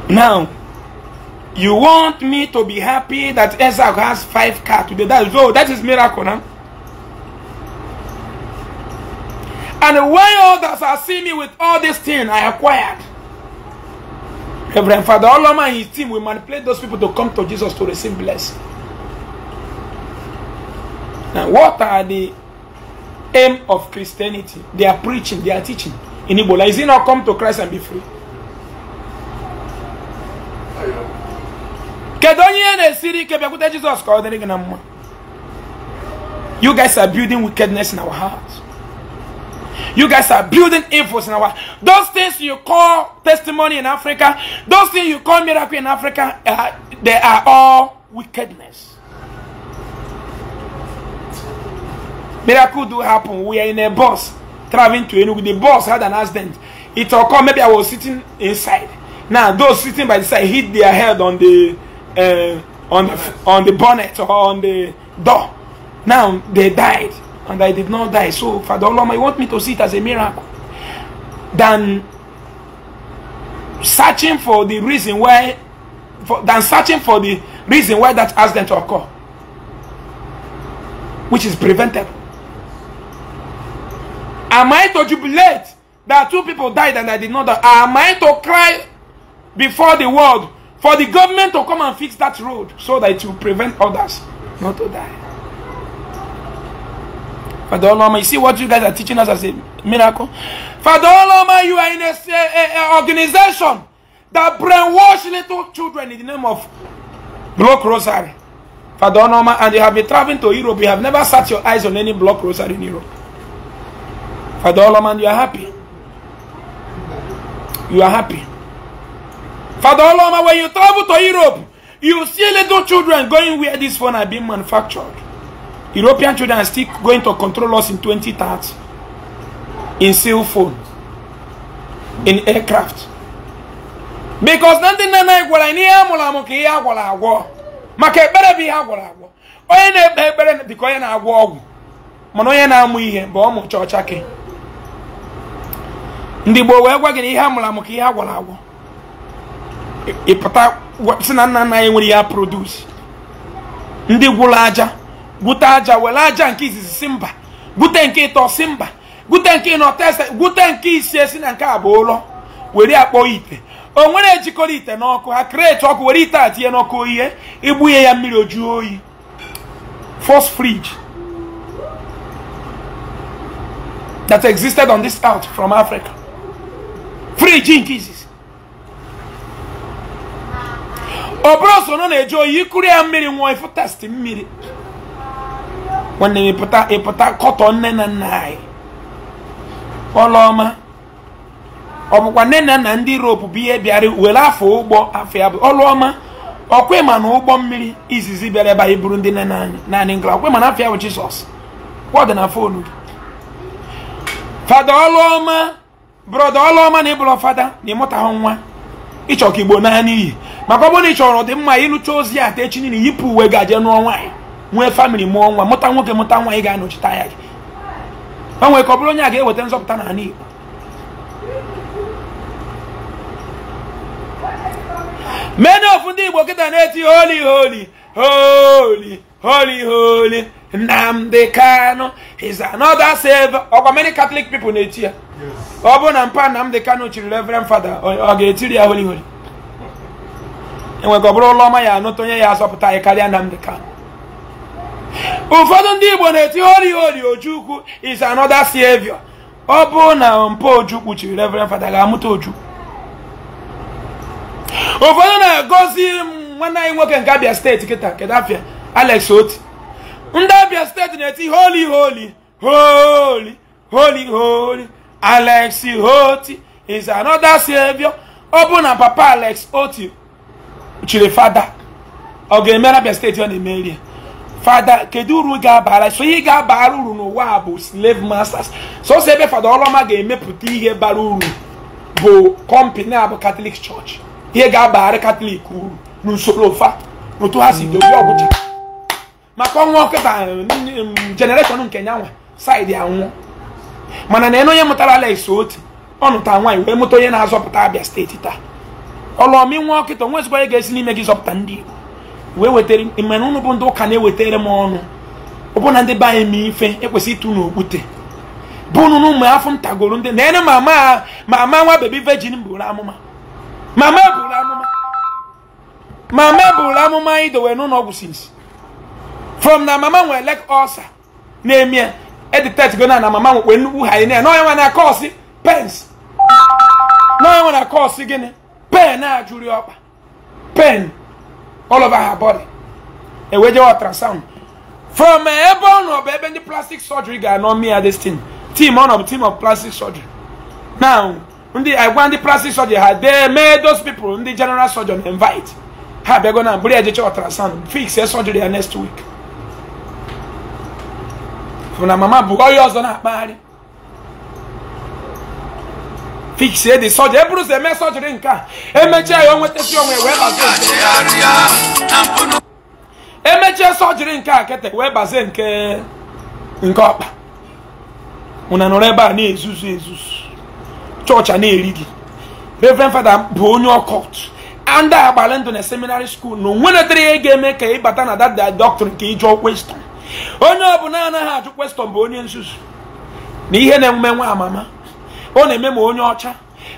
Now, you want me to be happy that Isaac has five cars today? That is oh, that is miracle, huh? And when others are seeing me with all this thing I acquired, Reverend Father all and his team will manipulate those people to come to Jesus to receive blessing. Now, what are the aim of Christianity? They are preaching, they are teaching. In Ebola, is it not come to Christ and be free? You guys are building wickedness in our hearts. You guys are building evils in our those things you call testimony in Africa, those things you call miracle in Africa, uh, they are all wickedness. Miracle do happen. We are in a bus traveling to Enugu. The bus had an accident. It occurred. Maybe I was sitting inside. Now those sitting by the side hit their head on the uh, on the on the bonnet or on the door. Now they died, and I did not die. So Father Allah, you want me to see it as a miracle? Than searching for the reason why, for, than searching for the reason why that accident occurred, which is preventable. Am I to jubilate that two people died and I did not die? Am I to cry before the world for the government to come and fix that road so that it will prevent others not to die? Father Oloma, you see what you guys are teaching us as a miracle? Father Oloma, you are in an organization that brainwash little children in the name of block rosary. Father Oloma, and you have been traveling to Europe. You have never set your eyes on any block rosary in Europe. Father Oloman, you are happy. You are happy. Father Oloma, when you travel to Europe, you see little children going where this phone are being manufactured. European children are still going to control us in 2030. In cell phones In aircraft. Because nothing na gwara ni amụla amụ ka ihe agwara agwọ. Maka ekpere bụ ihe agwara agwọ. Onye na-ekpe ekpere dịka onye na-agwọ ọgwụ. Mana onye na-amụ ihe bụ ọmụ chọọcha gị. ndị gboo wee gwa gị na ihe a mụrụ ihe a agwọ ịpụta sị na nna nna nwere ya produce ndị gwụrụ aja gwute aja were aja nke izizi si mba gwute nke ịtọ si mba gwute nke ịnọ ese gwute nke isi esi na nke a bụ ụlọ were akpọ ite o nwere ejikọrọ ite n'ọkụ ha kreti ọkụ were ite a tinye n'ọkụ oyihe igbunye ya mmiri ojuo oyi first fridge that existed on this earth from Africa free nke izizi ọ bụrụ na eji oyi ikuru ya mmiri nwụọ ịfụtasti mmiri nwanne m ịpụta ịpụta nne na nna anyị ọlụọma ọ nne na nna ndị ropu bụ ihe bịara were afọ ụgbọ afọ ya bụ ọlụọma ọkwe ma na ụgbọ mmiri izizi bịara ebe ndị nne na anyị ma na ya bụ na gị fada ọlụọma brọda ọlụọma na ịbụrụ fada na ịmụtahụ nwa ịchọ ka igbo naanị iyi maka ọ bụrụ na ị chọrọ dị mma ịlụcha ozi a techi niile yipụ uwe gaje nụọ nwaanyị nwee famịlị mụọ nwa mụta nwoke mụta nwanyị ga-anọchite ya gị o nwere ka ọ bụrụ onye a ga-eweta nzọpụta n'ala igbo mee na ofu ndị igbo kịta na-eti holi holi holi holi holi Nnamdi Kanu is another savior ọkwa many Catholic people na-eti ya ọ bụrụ na mpa Nnamdi Kanu chiri Reverend Father ọ ga-etiri ya holi holi enwekọ bụrụ ụlọ ọma ya anụta onye ya asọpụta anyị karịa Nnamdi Kanu ụfọdụ ndị Igbo na-eti holi holi Ojukwu is another savior ọ bụrụ na mpa Ojukwu chiri Reverend Father ga-amụta Ojukwu ụfọdụ na m nwanne anyị nwoke nke Abia steeti kịta kedụ afịa Alex Oti ndị Abia steeti na-eti holi holi holi holi holi Alex hoti is another savior ọ bụ na papa Alex Oti chiri fada ọ ga-emere Abia steeti ọ na-emeri fada kedu uru ga-abara so ihe ga-abara uru n'ụwa a bụ slave masters ose ebe fada ọlọma ga-emepụta ihe bara uru bụ kọmpani a bụ katọlik chọọchị ihe ga-abara katọlik uru n'usoro fa n'otu ha si dozie ọgwụcha maka ọnwa kịta jenereshọn um, nke ya nwa ya anwụọ mana na onye mụtara Alex otu ọnụta nwanyị wee mụta onye na-azọpụta Abia steeti taa ọlọmi nwa ọkịta onwe ezigbo onye ga-esi n'ime gị zọpụta ndị Igbo wee wetara mmemme ụnụ bụ ndị ụka na ewetere m ọnụ ọbụna ndị be anyị ma ife ekwesị ịtụ n'okwute bụ ụnụ afọ m ndị na ene mama mama nwa bebi vejin bụrụ amụma mama bụrụ amụma mama bụrụ amụma idowe n'ụlọ ọgwụ sinsi from na mama nwere lek ọsa na-emie editet go na na mama nwekwe nnukwu ha ine n'onye nwe na kọọsị pens n'onye nwe na kọọsị gịnị pen a jụrụ ọkpa pen all over her body e eweje ultrasound from ebe ọ nọ bụ ebe ndị plastic surgery ga-anọ mia this thing team ọ nọ bụ team of plastic surgery now ndị agwa ndị plastic surgery ha dee mee those people ndị general surgeon invite ha bịago na bụrụ ejeche ultrasound fix surgery ya next week bụ na mama bụ onye ọzọ na-akpagharị fix dị sọjị e bụrụ ụzọ eme sọjịrị nke a emechie ya onwetasi onwe wee bazie emechie sọjịrị nke a kete wee bazie nke nke ọkpa ụna nọrọ ebe a na-ezuzu ezuzu chọọchị a na-eri gị reverend fada bụ onye ọkọt and agbalị ndụ na seminary school e na onwe netere ihe ga-eme ka ịbata na dada doctrine ka ịjụ kweston onye ọbụla anaghị ajụ kwestọn bụ onye nzuzu na ihe na-eme nwa amama ọ na-eme ma onye ọcha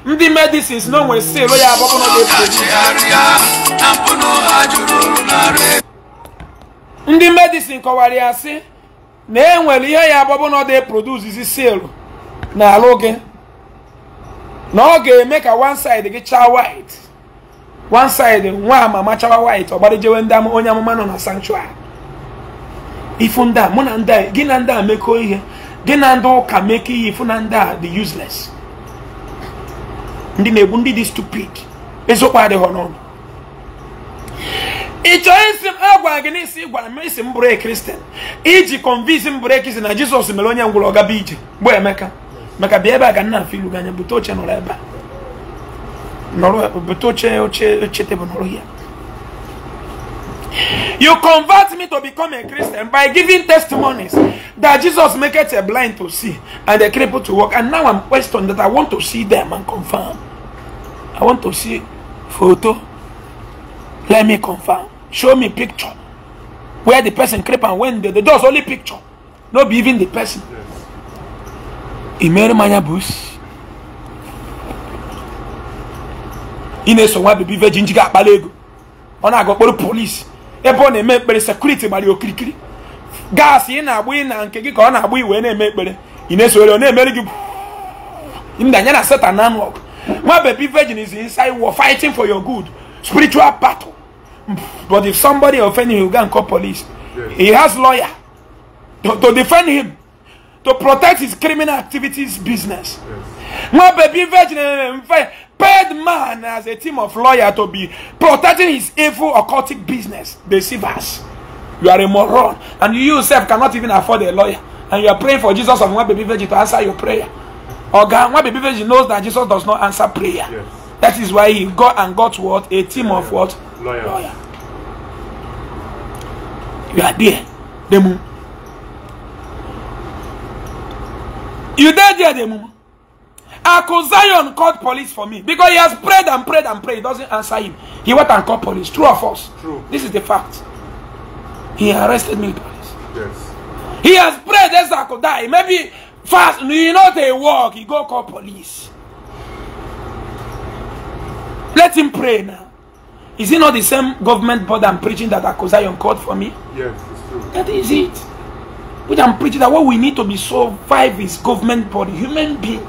ndị medisins na o nwere sịlụ ya abụọ ndị medisin kọwara ya sị na e nwere ihe ya abụọ na dị produzizi sịlụ na alụ gị na ọ ga-eme ka one side gị chaa white one side nwa amama chawa white ọgbarijewe ndị onye amụma nọ na sanctuary ifu ndị a mụ na ndị a gị na ndị a mekọọ ihe gị na ndị ụka mekọọ ihe ifu na ndị a dị useless ndị na-egbu ndị dị stupid eziokwu adịghị n'ọnụ ị chọọ isi m agwara gị n'isi gwara m isi m bụrụ kristian e iji kọnvinsi m bụrụ ekristian na jizọs mere onye ngwụrụ ọgaba ije bụ emeka maka bịa ebe a ga nna ilu gị anya bute oche nọrọ ebe a bute oche oche oche tebụl nọrọ ya You convert me to become a Christian by giving testimonies that Jesus make a blind to see and a cripple to walk. And now I'm questioned that I want to see them and confirm. I want to see photo. Let me confirm. Show me picture. Where the person creep and when the, the door's only picture. Not even the person. Imere manya bus. Ị na-eso nwa bebi virgin ji ga-akpali ego ọ aga okporo ebe ọ na-eme ekpere sekuriti gbara ya okirikiri gaasị ị na-agbụ ị na nke gị ka ọ na-agbụ iwe na-eme ekpere ị na-esoghere ọ na-emeri gị ndanya na setan na anụ ọgụ nwa baby virgin is inside war fighting for your good spiritual battle but if somebody offend you go and call police he has lawyer to, to defend him to protect his criminal activities business nwa baby virgin eh, eh, eh, paid man as a team of lawyer to be protecting his evil occultic business, deceivers. You are a moron, and you yourself cannot even afford a lawyer, and you are praying for Jesus of one baby virgin to answer your prayer. Or God, one baby virgin knows that Jesus does not answer prayer. Yes. That is why he got and got what a team of what lawyer. lawyer. You are there, Demu. You there, there, Demu. Uncle called police for me because he has prayed and prayed and prayed. He doesn't answer him. He went and called police. True or false? True. This is the fact. He arrested me, police. Yes. He has prayed, yes, I could die. Maybe fast, you know, they walk. He go call police. Let him pray now. Is it not the same government board I'm preaching that Akozion called for me? Yes, it's true. That is it. We I'm preaching that what we need to be so survive is government body, human being.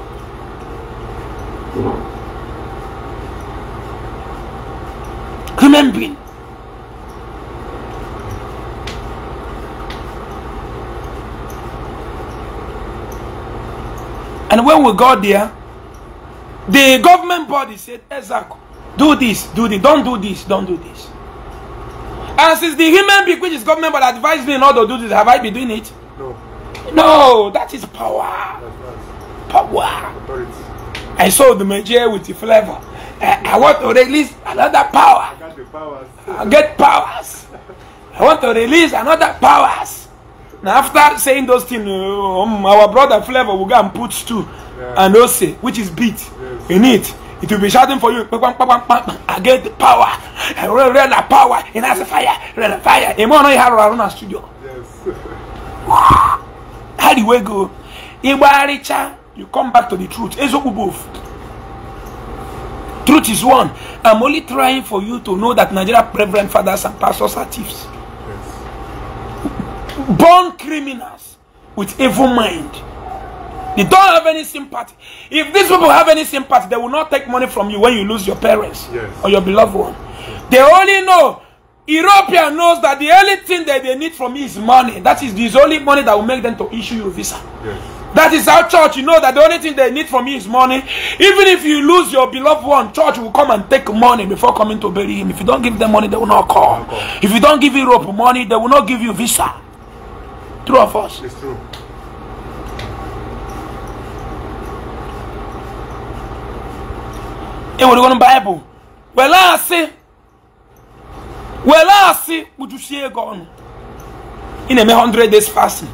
Human being. And when we got there, the government body said, Ezako, do this, do this, don't do this, don't do this. And since the human being, which is government, but advised me not to do this, have I been doing it? No. No, that is power. Power. Authority. I saw the magic with the flavor. I, eh, I want to release another power. Get powers. I get powers. I want to release another powers. Now after saying those things, uh, um, our brother Flavor will go and put two yeah. and also, which is beat yes. in it. It will be shouting for you. I get the power. I will the power. And as a fire, a fire. And more, I have around our studio. Yes. How do we go? Igba Richa. you come back to the truth. Truth is one. I'm only trying for you to know that Nigeria reverend fathers and pastors are thieves. Yes. Born criminals with evil mind. They don't have any sympathy. If these people have any sympathy, they will not take money from you when you lose your parents yes. or your beloved one. Yes. They only know, European knows that the only thing that they need from me is money. That is the only money that will make them to issue you a visa. That is how church, you know that the only thing they need from you is money. Even if you lose your beloved one, church will come and take money before coming to bury him. If you don't give them money, they will not call. Okay. If you don't give Europe money, they will not give you visa. True of us. It's true. enwere Bible. Were asị were asị kpuchusie ego ọnụ. Ị na-eme 100 days fasting.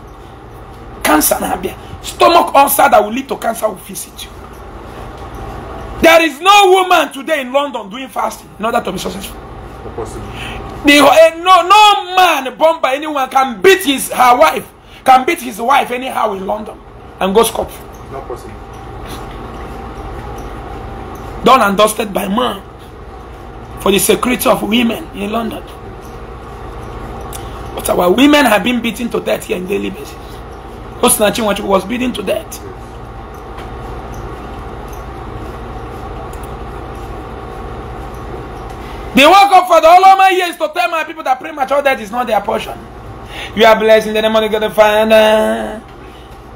cancer na-abịa. Stomach ulcer that will lead to cancer will visit you. There is no woman today in London doing fasting in order to be successful. The, uh, no, no man born by anyone can beat his her wife, can beat his wife anyhow in London and go scot. Not possible. Done and dusted by man for the security of women in London. But our women have been beaten to death here in daily basis. osinachi Chinwachukwu was beaten to death. the work up for the whole is years to tell my people that premature death is not their portion. You are blessed in the name of God the Father,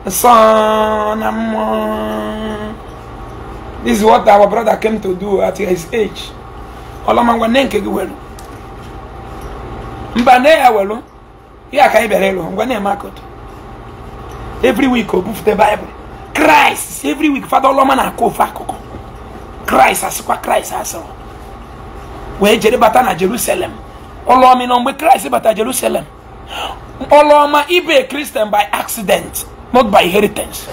the Son, and more. This is what our brother came to do at his age. Olomangwa nenke giwelu. Mbane ya welu. Ya kaibere lu. Mbane ya makoto. every week obufute bible christ every week father ọlọma na-akụ ofe akụkọ Christ asịkwa kraịst asịrọ wee jere bata na jerusalem ọlọma na mgbe kraịst bata jerusalem ọlọma ibe Christian by accident not by inheritance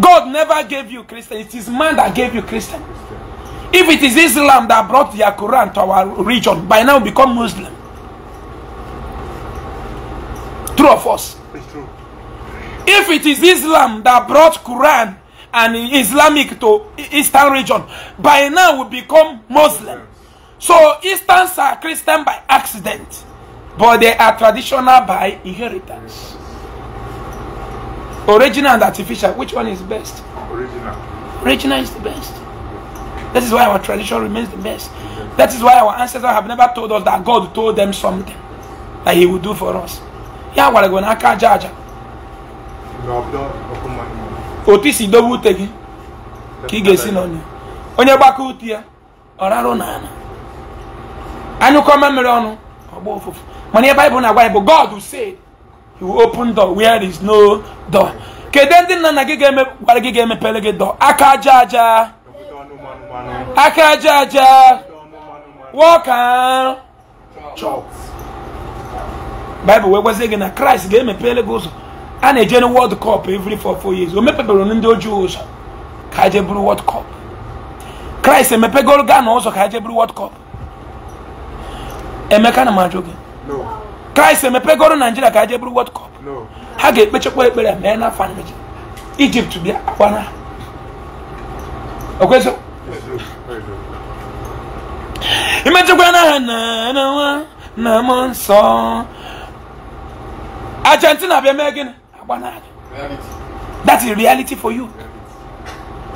god never gave you christian it is man that gave you christian if it is islam that brought their quran to our region by now become muslim true of us If it is Islam that brought Quran and Islamic to Eastern region, by now we become Muslim. So Easterns are Christian by accident, but they are traditional by inheritance. Original and artificial, which one is best? Original. Original is the best. That is why our tradition remains the best. That is why our ancestors have never told us that God told them something that He would do for us. Yeah, we're going to otu isi dobe ute gị ka ị ga-esi n'ọnya onye gbakọ ute ya ọ rarụ n'ala anyụkọ mmamịrị ọnụ ọgba ụfụfụ mana ihe baịbụl na-agwa anyị bụ God said he will open door where is no door kedu ndị nna nna gị ga-gwara gị ga-emepere gị door aka aja aja aka aja aja wọka chọp baịbụl wee gwazie gị na kraịst ga-emepere gị ụzọ a na-eje na world cup every four four years o mepebere ndị ojii ụzọ ka je bụrụ world cup kraịst emepegoro gaa na ụzọ ka je bụrụ world cup emeka na m ajụ gị kraịst emepegoro naijiria ka je bụrụ world cup ha ga-ekpechekwa ekpere mee n'afọ anyị ijipt bịa agbana okwezi imechekwa n'aha na na nwa na mụ nsọ argentina bịa mee gịnị That is reality for you.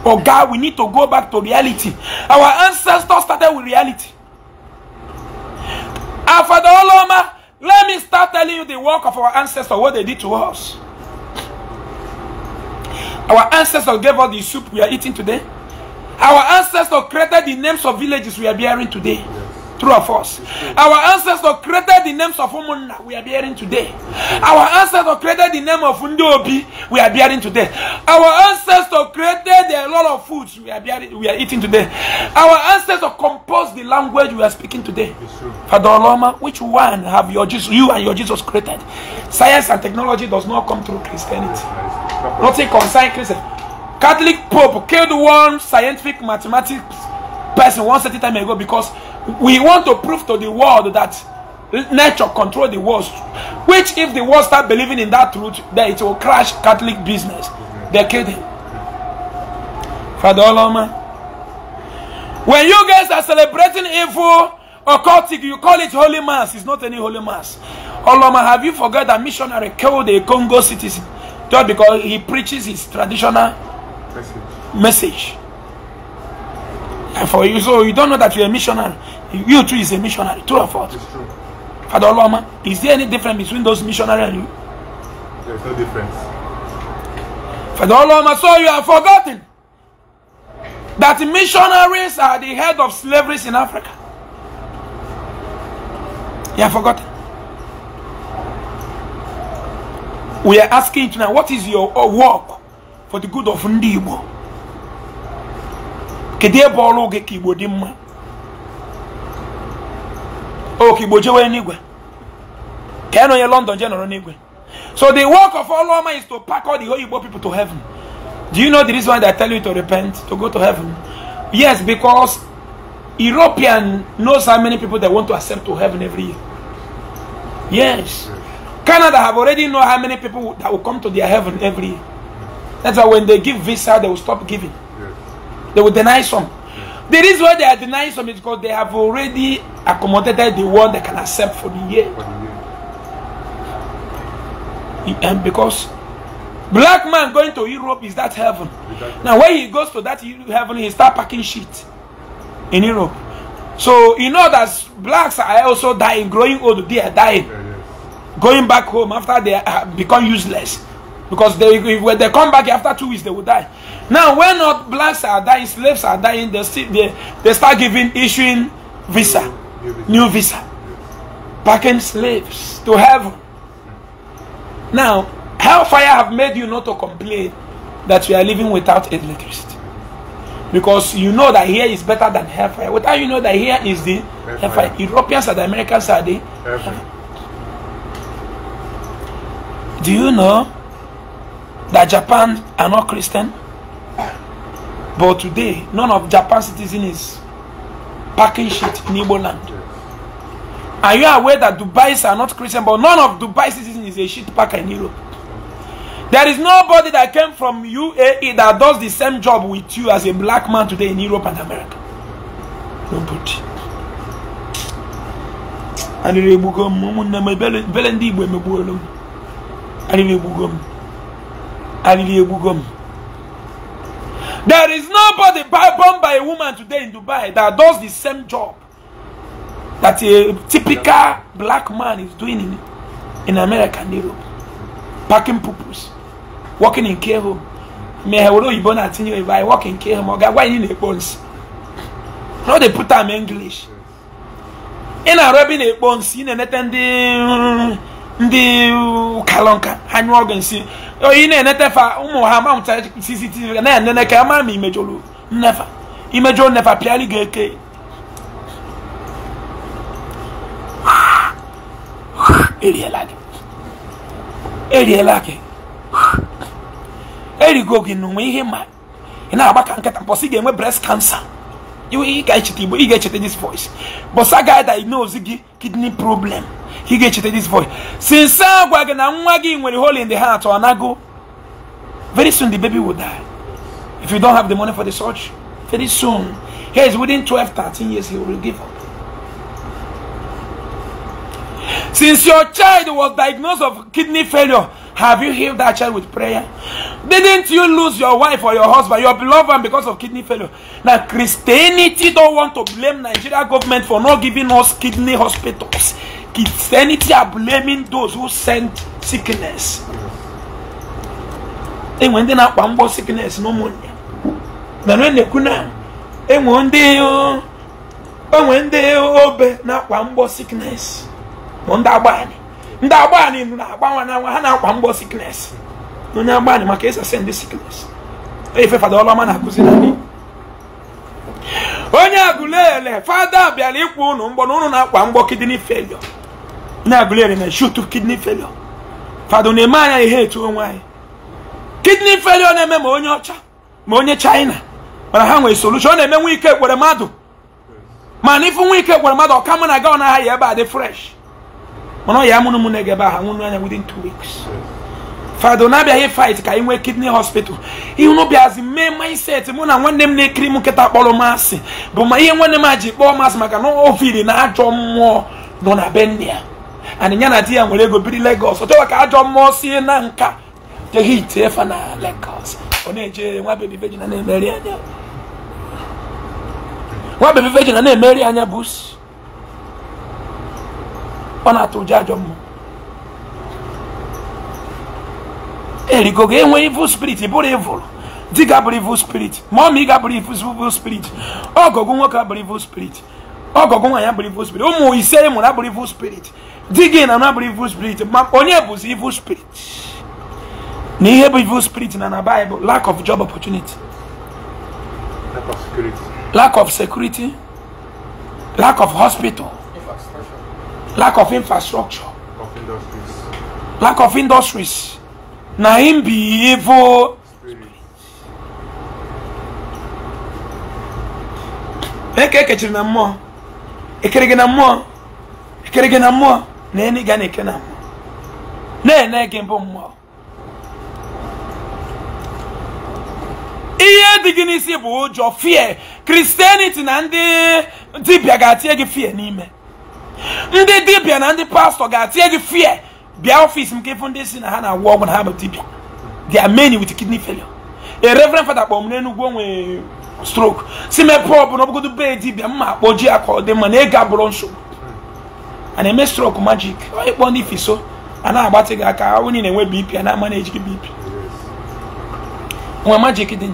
Oh God, we need to go back to reality. Our ancestors started with reality. And Oloma, let me start telling you the work of our ancestors, what they did to us. Our ancestors gave us the soup we are eating today. Our ancestors created the names of villages we are bearing today. Through of us. Our ancestors created the names of Umunna we are bearing today. Our ancestors created the name of Ndiobi we are bearing today. Our ancestors created a lot of foods we are, bearing, we are eating today. Our ancestors composed the language we are speaking today. Father Oloma, which one have your Jesus, you and your Jesus created? Science and technology does not come through Christianity. Nothing concerns Christianity. Catholic Pope killed one scientific mathematics person one certain time ago because we want to prove to the world that nature control the world which if the world start believing in that truth then it will crash catholic business they're kidding father oloma when you guys are celebrating evil occultic you call it holy mass it's not any holy mass oloma have you forgot that missionary killed a congo citizen just because he preaches his traditional message, message. for you. So you don't know that you're a missionary. You too is a missionary. True or false? It's true. Father Oloma, is there any difference between those missionaries and you? There's no difference. Father Oloma, so you have forgotten that missionaries are the head of slavery in Africa. You have forgotten. We are asking tonight, what is your uh, work for the good of Ndibo? kedu ebe ọrụ gị ka dị o ka jewe n'igwe ka ya london je n'igwe so the work of Oloma is to pack all the holy people to heaven do you know the reason why they tell you to repent to go to heaven yes because european knows how many people they want to accept to heaven every year yes canada have already know how many people that will come to their heaven every year that's why when they give visa they will stop giving they will deny some. The reason why they are denying some is because they have already accommodated the one they can accept for the year. And because black man going to Europe is that heaven. Now when he goes to that heaven, he start packing shit in Europe. So you know that blacks are also dying, growing old. They are dying, going back home after they become useless, because they when they come back after two weeks they will die. Now, when not blacks are dying, slaves are dying, they, they, they start giving, issuing visa, new visa, packing slaves to heaven. Now, hellfire have made you not to complain that you are living without electricity. Because you know that here is better than hellfire. Without you know that here is the hellfire. hellfire. Europeans and Americans are the hellfire. Do you know that Japan are not Christian? But today, none of Japan's citizens is packing shit in Igbo land. Are you aware that Dubais are not Christian, but none of dubais citizens is a shit packer in Europe? There is nobody that came from UAE that does the same job with you as a black man today in Europe and America. Nobody. Arịrị egbugo m ụmụnne m ebele There is nobody born by a woman today in Dubai that does the same job that a typical black man is doing in, in America and Europe. Packing pupils working in care home. Me hello you born at if I work in care home, okay, why in the bones? Now they put them English. In rubbing they bones, in the net and the mm, mm, kalonka, hand organ, see. oyi oh, na-enetefa ụmụ ha ma mụtara cctv na-enene ka ama ma imejoro nnefa imejo nnefa pịali ga-eke eriela gị eriela gị erigo gị n'ụwa ihe ma ị na-agba ka nkịta mbọsị ga-enwe breast cancer ị ga-echeta igbo ị ga-echeta this voice bọsa ga-ada ime ozi gị kidney problem He ga ga-echeta this voice since I gwa gị na nwa gị hole in the heart ọ nago very soon the baby will die if you don't have the money for the surgery very soon he is within 12 13 years he will give up Since your child was diagnosed of kidney failure, have you healed that child with prayer? Didn't you lose your wife or your husband, your beloved one because of kidney failure? Now Christianity don't want to blame Nigeria government for not giving us kidney hospitals. Christianity are blaming those who send sickness. enwe ndị na-akpa mgbọ sickness n'ụmụnne mana e na-ekwu na enwe ndị enwe ndị obe na-akpa mgbọ sickness bụ ndị agbanị ndị agbanị na-agbanwe na nwa ha na-akpa mgbọ sickness onye agbanị maka ịsa send sickness efe fada ọlọma na-akụzi na anyị onye agụlele fada bịara ịkwụ ụnụ mgbọ na ụnụ na-akpa mgbọ kidney failure na-agụleri na shutu kidney failure fado na-eme anya ihe etu onwe anyị kidney failure na-eme ma onye ọcha ma onye china mana ha nwere solution ọ na-eme nwa ike kwere mmadụ mana ifu nwa ike kwere mmadụ ọka mụ na gaọ na aha ebe a dị fresh mana ọ ya mụrụ mụ na-ege ebe aha nwụrụ anya within two weeks fado na-abịaghị fight ka ị nwee kidney hospital ihu n'ụbịazi mee mindset mụ na nwanne m na-ekiri m nkịta kpọrọ masị bụ ma ihe nwanne m a ji kpọọ masị maka na ofili na ajọ mmụọ nọ na be nne ya and na di ya nwere ego biri Lagos ọtọwa ka ajọ mmụọ si na nka teghị ite efe na Lagos ọ na-eje nwa bebi veji na na-emeri anya nwa bụ ọ na-atụ ụjọ ajọ mma. erigogo evil spirit bụrụ evil ga evil spirit ma ị ga ọgọgụ nwoke evil spirit ọgọgụ nwaanyị abụrụ evil spirit ụmụ ise ị mụrụ abụrụ evil spirit di gị na abụrụ evil spirit ma onye bụzi evil spirit na ihe bụ evil spirit na na Bible lack of job opportunity lack of security lack of, security, lack of hospital lack of infrastructure lack of industries na im be evil spirit eke ekechiri na mmụọ ekere na mmụọ ekere na mmụọ na enyi ga na-eke na mmụọ na-ene gị mbụ mmụọ ihe dị gị n'isi bụ ụjọ fie kristianity na ndị dibịa ga-atie gị fie n'ime ndị dibịa na ndị pastọ ga-atie gị fie bịa ọfịs m ka ndị si na ha na-agwọ ọgwụ na ha bụ dibịa they are many with kidney failure a reverend fada kpọọ n'enugwu onwe stroke si mepe ọ bụla ọbụgodo bee dibịa mma akpọji ya ka ọ dị mma na ego abụrụ nsogbu a na-eme stroke magic onye kpọọ ndị fiso a na-agbatị gị aka onye na-enwe bp a na-ama na ejighi bp nwa magic dị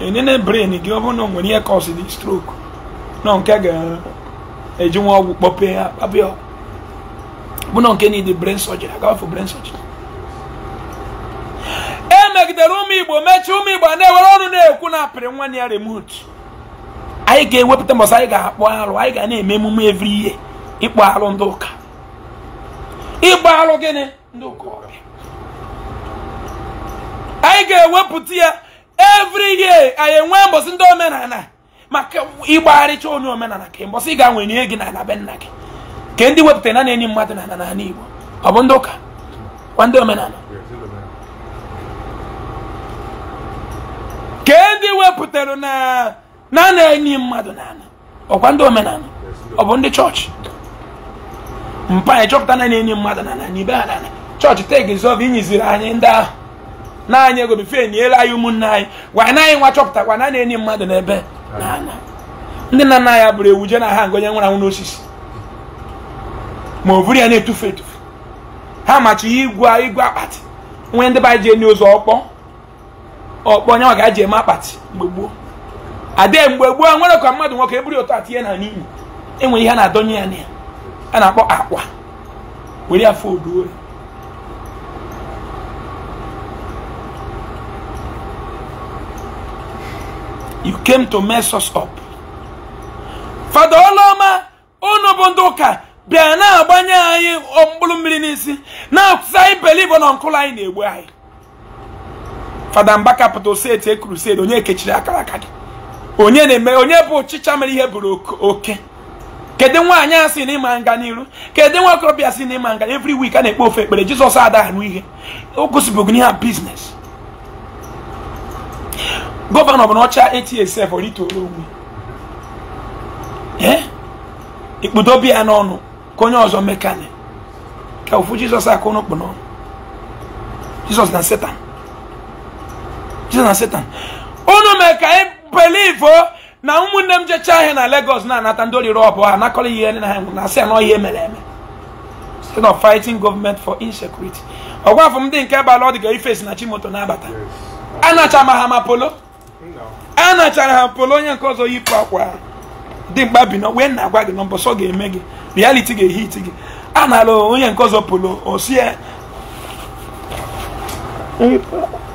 nye brain gị ọ bụrụ na nwere ihe si dị stroke nọ nke ga-eji nwa ọgwụ kpọpee ya kpabịa ọgwụ nọ nke na ịdị brain surgery agafọ brain surgery megidere ụmụ igbo mechie ụmụ igbo na-ewere ọnụ na-ekwu na apịrị nwa ya remot anyị ga-ewepụta mbọsị anyị ga-akpọ arụ anyị ga na-eme emume evri ihe ịkpọ arụ ndị ụka ịgba arụ gịnị ndị ụka ọbịa anyị ga-ewepụta ya evri ihe anyị enwe mbọsị ndị omenala maka ịgbagharịcha onye omenala ka mbọsị ị ga-anwe nye gị n'ala be nna gị ka ndị wepụtara na na enye mmadụ na ala n'ala Igbo ọ bụ ndị ụka kwa ndị omenala ka ndị e wepụtara na na na enye mmadụ nana, ọkwa ndị omenala ọ bụ ndị chọọchị mpa anyị chọpụta na na-enyi mmadụ nana n'ibe ha nana chọọchị tegizov inyiziri anyị ndị ahụ naanị ego ego bife enyela anyị ụmụnne anyị gwa anyị nwa chọpụta gwa na na-enyi mmadụ n'ebe nana ndị nna nna ya bụrụ ewu je na ha ngonye nwụrụ anwụ n'osisi ma ọ bụrụ ya na-etufu etufu ha machi igwe igwe akpati nwee ndị be anyị ji enye ụzọ ọkpọ ọkpọ nyanwa ka a ji eme akpati mgbe gboo adịghị mgbe gboo nwere ka mmadụ nwoke eburu ụtọ atinye na n'iyi enwere ihe a na-adọnye ya na ya a na-akpọ akwa were afọ oduo you came to mess us up fada ọlọma unu bụ ndị ụka bịa na-agbanye anyị mkpụrụ mmiri n'isi na-akụzi anyị believe na nkụlụ anyị na-egbu anyị fada mba capital steeti e crusade onye ekechiri akara aka gị onye na-eme onye bụ ọchịcha mere ihe bụrụ oke kedu nwaanyị a si n'ịma nga n'iru kedu nwa okorobịa si n'ịma nga every week a na-ekpe ofe ekpere jizọs adahụ ihe o gosibụghị ihe a gọvanọ bụ na ọcha etsf ritoro onwe ikpudobe ya n'ọnụ ka onye ọzọ mekane ka ofu jizọs akụ n'okpu n'ọnụ jizọs na setan jide na satan unu mee ka anyị e believe na ụmụnne m jecha ahịa na Lagos na-anata ndị orire ọbụ ha nakọrọ ihe na ha na asị ya na ihe mere eme instead of fighting government for insecurity ọgwa afọ m dị nke bala ọ dị ka ifesi na chimoto na-abata anacha ma ha polo polo anachara ha polo onye nke ọzọ yipụ akwa dị mkpa bi wee na-agwa gị na mbọsọ ga-eme gị reality ga-ehit gị a na-alụ onye nke ọzọ polo osie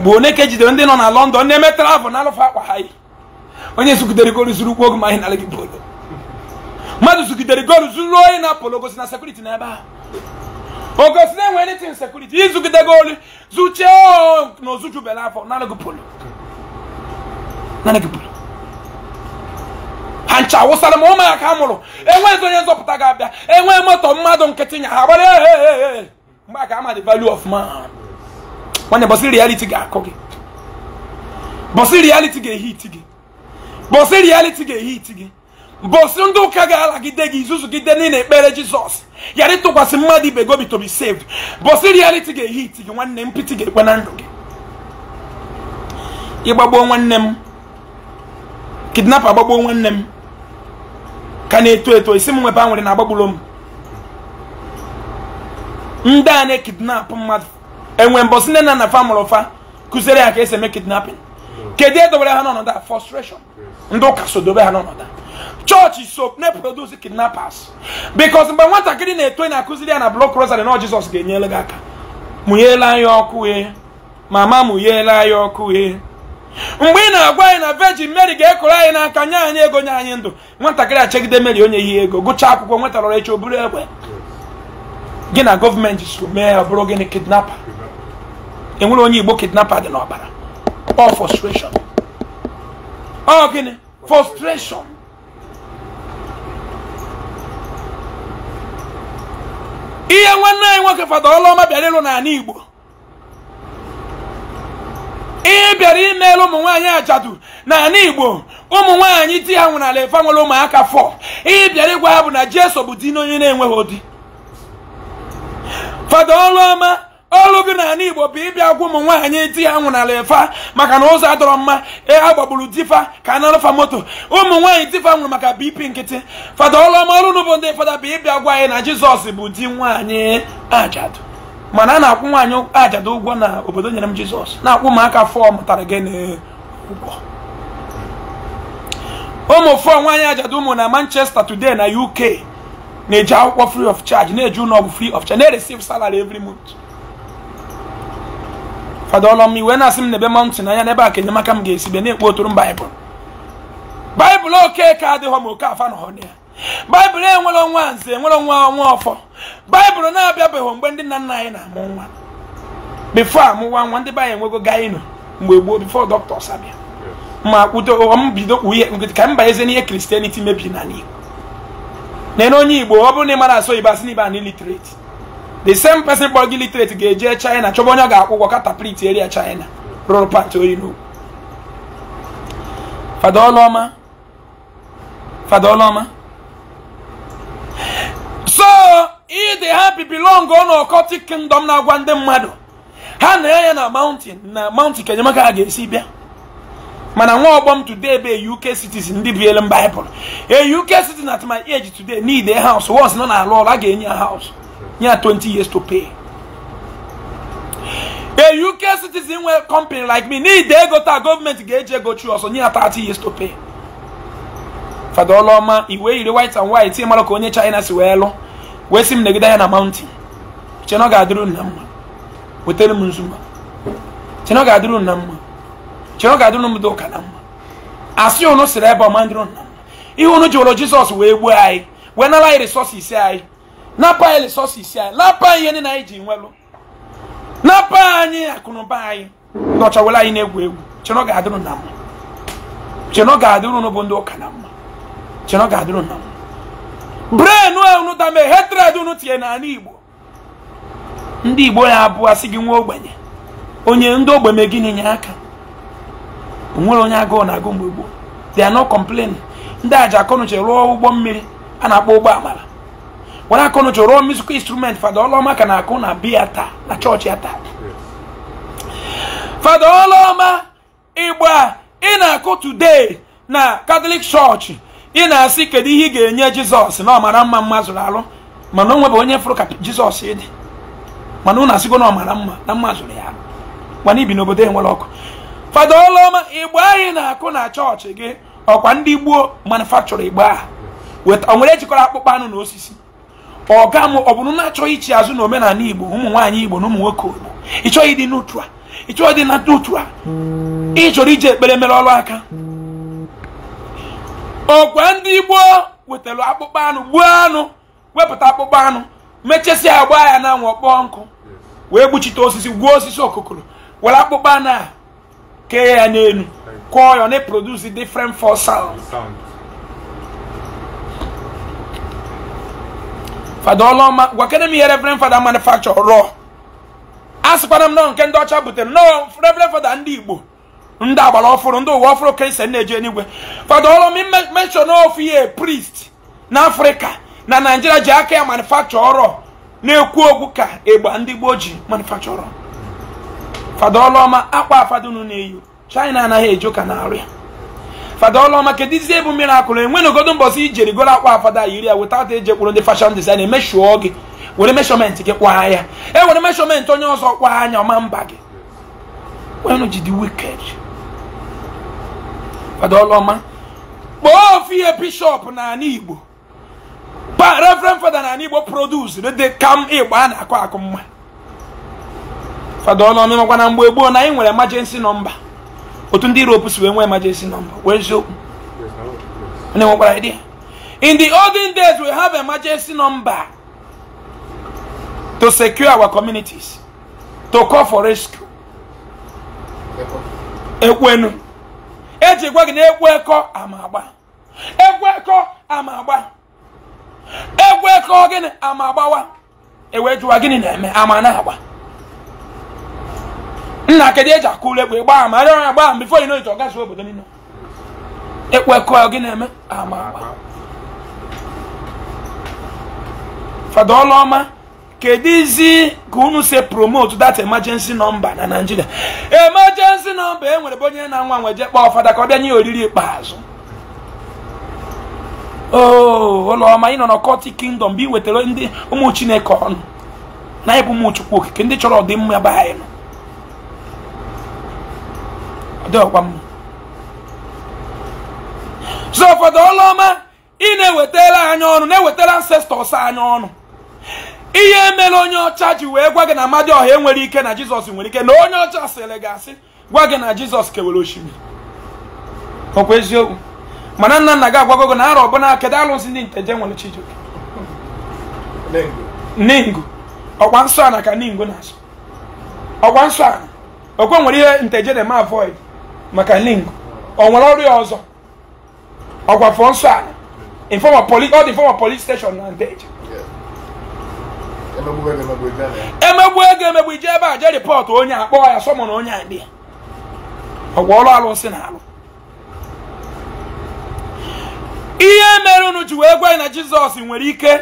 mgbe one ka ejidere ndị nọ na London na-eme travel na alụfa akwa ha onye sugidere goolu zuru ụkwụ oge ma anyị nalaghị polo mmadụ sugidere goolu zuru oyi na polo gosi na sekuriti na ebe a ogosi na enwe nitin sekuriti izugide goolu zuchie na ozuju bela afọ nalaghị polo nalaghị polo ha ncha awụsara ma ya ka mụrụ enweghị onye nzọpụta ga-abịa enwe moto mmadụ nkịtị nya ha gbara mgbe aka ama the value of man nwanne bọsị reality ga-akọ gị bọsị reality ga-ehi iti gị bọsị reality ga-ehi iti gị bọsị ndị ụka ga-alagide gị izuzu ị niile ekpere jizọs yara ịtụkwasị mmadụ ibe gobi tobi be saved bọsị rịaliti ga-ehi iti gị nwanne mpịtị ga-ekwe na ndụ gị ịgbagbuo nwanne m kidnap agbagbuo nwanne m ka na-eto eto isi m nwebe a nwere na agbagburo m ndị a na-ekidnap mmadụ enwe mbọsị nne na nna fa mụrụ fa kụziere ya ka esi eme kidnapping kedu edobere ha n'ọnọdụ a frustration ndị ụka so dobe ha n'ọnọdụ chọọchị so na-eproduce kidnappers mgbe nwatakịrị na-eto na-akụziri ya na blọk rosary na jizọs ga-enyere gị aka mụnyela anya ọkụ e mama mụnyela ya ọkụ e mgbe ị na-agwa anyị na virgin mary ga-ekọrọ anyị n'aka nye anyị ego nye anyị ndụ nwatakịrị achegide mary onye ihe ego gụchaa akwụkwọ nwetarọrọ echi o buru egbe gị na gọọmenti so mee ọ bụrụ gịnị kidnapper enwere onye igbo kidnapper dị n'ọbara ọ frustration ọ gịnị frustration ihe nwanne anyị nwoke fada ọlụọma bịara ịlụ n'ala igbo ihe bịara imeela ụmụ nwaanyị ajadu n'ala igbo ụmụ nwaanyị di ya nwụrụ ala nwere ụmụaka fọ ihe bịara ịgwa ha bụ na jeso bụ di n'onye na-enweghị di fada ọlụọma ọrụ gị n'ala igbo bụ ịbịa gwa ụmụ nwaanyị di ya nwụnara ịfa maka na ụzọ adọrọ mma e, a gbagburu difa ka anarụfa moto ụmụ nwaanyị difa nwụrụ maka bp nkịtị fada ọlụọma ọrụ n'ụbụ ndị fada bụ ịbịa gwa anyị na jizọs bụ di nwaanyị ajadụ mana a na-akwụ nwaanyị ajadụ ụgwọ na obodo nyere m jizọs na-akwụ ụmụaka fọọ mụtara gị n'ụgwọ ụmụ fọọ nwaanyị ajadụ ụmụ na manchester today na uk na-eji akwụkwọ free of charge na-eji ụlọ ọgwụ free of charge na-ereceive salary every month fada ọlọm iwe na-asị m n'ebe mọntụ na n'ebe a ka enyemaka m ga-esi bịa na-ekpo otoro m baịbụl baịbụl oke ka adịghọ ma oke afa na ọnụ ya baịbụl enwere ọnwa nze enwere ọnwa ọnwa ọfọ baịbụl na-abịabeghị mgbe ndị nna nna anyị na-amụ nwa bifo amụwa nwa ndị be anyị enwego gaịnụ mgbe gboo bifo dọkịta abịa ma kwudo m bido ka m banyeze n'ihe kristianity mebiri n'ala igbo na onye igbo ọ bụrụ na ị mara asọ igbo asị na ibe an illiterate the same person kpọrọ gị literate ga-eje china chọba onye ọ ga-akwụ ụgwọ kataplit eria china rụrụ pati oyi n'ugwu fada ọlụọma so ị dị happy belong on occultic kingdom na-agwa ndị mmadụ ha na-enye na mountain na mountain ka ha ga-esi bịa mana nwa ọgbọ m today be uk cities ndị a uk at my age today need a na-alụ ọrụ a ga-enye ya house you have 20 years to pay. A UK citizen where company like me need they go to government gauge go through also near 30 years to pay. Father Oloma, iwe iri white and white, ime mara onye China si wee lụ. Wee negida negide ya na mountain. Che no ga-adịrụ na mma. Wetere m nzuma. Che no ga-adịrụ na mma. Che no ga-adịrụ m doka na mma. Asị unu siri ebe ọma ndịrụ nna mma. Ihe unu ji ụlọ Jizọs wee gbuo anyị. Wee anyị anyị. napa anyị resources anyị napa anyị ihe na anyị ji nwelụ napa anyị akụnụba anyị ndị ọcha were anyị na-egwu egwu chenọ ga-adịrụ na mma chenọ ga-adịrụ n'ụbụ ndị ụka na mma chenọ ga-adịrụ na mma brenu a unu dame hetred unu tinye n'ala igbo ndị igbo ya abụọ asị gị nwa ogbenye onye ndị ogbenye gị na aka onwere onye agụụ na agụ mgbe gboo they are not complaining ndị aja akọnuche ruo ụgbọ mmiri a na-akpọ ụgbọ amara nwana akụnụ chọrọ rụọ musical instrument fada ọlọma ka na-akụ na biya taa na chọọchị ya taa fada ọlọma ịgba ị na-akụ today na katọlik chọọchị ị na-asị kedu ihe ị ga-enye jizọs na ọmara mma mma zụrụ alụ mana onwe bụ onye fụrụ ka jizọs dị mana unu asịgo na ọmara mma na mma zụrụ ya alụ mana ibi n'obodo enwere ọkụ fada ọlọma igbe anyị na-akụ na chọọchị gị ọkwa ndị gboo manufakchọrọ igbe a o nwere ejikọrọ akpụkpọ anụ na osisi ọga m ọ bụrụ na-achọghị ichi azụ na omenala igbo ụmụ nwaanyị igbo na ụmụ nwoke igbo ịchọghị dị n'utu a ịchọghị dị na n'utu a ị chọrọ iji ekpere mere ọrụ aka ọkwa ndị gboo wetara akpụkpọ anụ gbuo anụ wepụta akpụkpọ anụ mechesịa agba ya na anwụ kpọọ nkụ wee gbuchite osisi gwuo osisi okokoro were akpụkpọ anụ a kee ya n'elu kụọ ya na produce different for sound fada ọlọma gwa kedu m ihe reverend fada manufacture rụọ a m nọ nke ndị ọcha butere nọọ reverend fada ndị igbo ndị agbara ọfụrụ ndị ụwa ọfụrụ kristian e na-eji enigwe fada ọlọma mention ihe priest na afrịka na naijiria ji aka ya manufacture ọrọ na-ekwu okwu ka ịgba ndị gboo ji manufacture ọrọ fada ọlọma akwa afadunu na-eyi china anaghị eji ụka na arịa fada ọlụọma kedu izi ebu mirakụl enwe n'ogodo mbọsị ijeri goro akwa afada yiri ya weta ata eji ekwuru ndị fashion design emeshuo gị were meshọment eh, gị kwa ya e were meshọment onye ọzọ kwa anya ọma mba gị wenu jidi wicked fada ọlụọma kpọọ bishọp na igbo fada na igbo produs dị ịgba a na-akụ akụ mma fada na mgbe gboo na anyị nwere nọmba otu ndị iroopu si wee nwee emergency number wee eziokwu onye nwekwara idea in the olden days we have emergency number to secure our communities to call for rescue ekwenu eji gwa gị na ekwekọ ama agba ekwekọ ama agba ekwekọ gịnị ama agbawa ewee jụwa gịnị na-eme ama na-agba nna kedu eji akụ ụlọ egwu ịgba ama arịọ ya gbaa bifo ino ito gazi obodo niile ịkwekọ gị na-eme ama agba fada ọlụọma kedu izi ka unu si promote that emergency number na Nigeria emergency number enwere nwere bụ onye na-anwa nweje kpọọ fada ka ọ bịa nye oriri ikpeazụ oo oh, ụlọọma ị nọ na kọti kingdom bụ iwetara ndị ụmụ chineke ọnụ na ịbụ ụmụ chukwu okike ndị chọrọ ọdịmma be anyị nọ dị ọkwa mma so ụfọdụ ọlụ ị na-ewetara anyị ọnụ na-ewetara ancestors anyị ọnụ ihe mere onye ọcha ji wee gwa gị na Amadioha enwere ike na Jizọs nwere ike na onye ọcha sịrị gị asị gwa gị na Jizọs kewere osimiri ọkwa eziokwu mana nna nna gị agwago gị na arọ ọbụna kedu alụsị ndị nteje nwere Chijioke ningu ọkwa nsọ ana ka ningu na-asụ ọkwa nsọ ana okwe nwere ihe nteje na ma avoid maka link ọ nwere ọrịa ọzọ ọgwafọ nsọ ala informa police ọ dị informa police steshọn na ndeje emegbu ego emegbu ije ebe a je rịpọt onye akpọ ya sọmọ na onye akpị ya ọgwa ọrụ alụsị na alụ ihe mere unu ji wee gwa anyị na jizọs nwere ike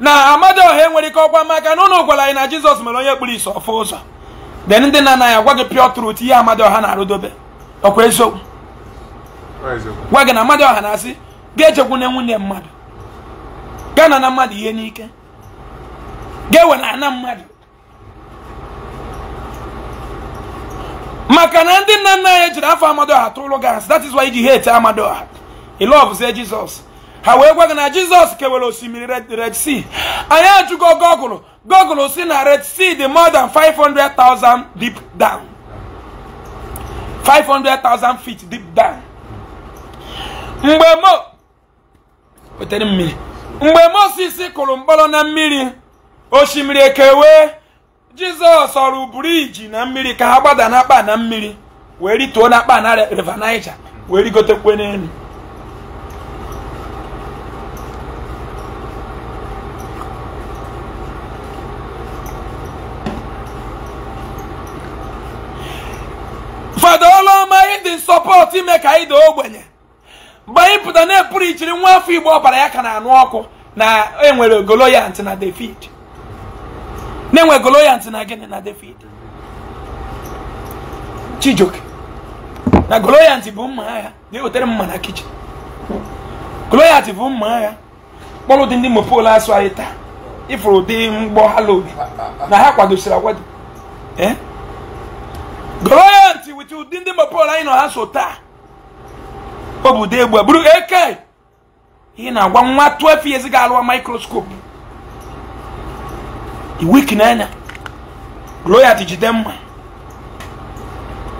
na ọha nwere ike ọgwa maka na unu gwara anyị na jizọs mere onye kpụrụ isi ọfụ ụzọ de ndị na anaghị agwa gị pịọ truth ihe ọha na-arụdobe ọkwa eziokwu gwa gị na mmadụ ọha na-asị ga-echekwu na nwunye mmadụ gana na mmadụ ihe n'ike ga-ewe na ana mmadụ maka na ndị nna nna anyị jiri afọ Amadioha tụrụ gị asị that is why iji hate Amadioha ilovezie Jizọs ha wee gwa gị na Jizọs kewere osimiri Red Sea anyị ajụgo gọgụlụ gọgụlụ si na Red Sea dị more than 500,000 deep down 500,000 feet deep down mgbe mo wetere mmiri mgbe kụrụ mkpọrọ na mmiri osimiri ekewe jizọs ọrụ briji na mmiri ka ha gbada na akpa na mmiri wee rituo na akpa na river niger wee rigotekwe n'elu sọpọtụ ime ka anyị daa ogbenye mgbe anyị pụta na-epụrụ ichiri nwa afọ igbo ọbara ya ka na-anụ ọkụ na enwere Goloyant na David na-enwe Goloyant na gịnị na David Chijoke. na Goloyant bụ mma agha na-ewetere mma na kichin Goloyant bụ mma agha kpọrọ ụdị ndị mopol asụ anyị taa ịfụrụ ụdị mgbọ ha na ha kwadosiri agwado eh? Goloyant pụta ụdị ndị mapol anyị nọ ha so taa obodo egbu ụdị egbe bụrụ eke ị na-agwa nwa 12 years ga-alụwa mikroskopu iwik n'anya gloyat jide mma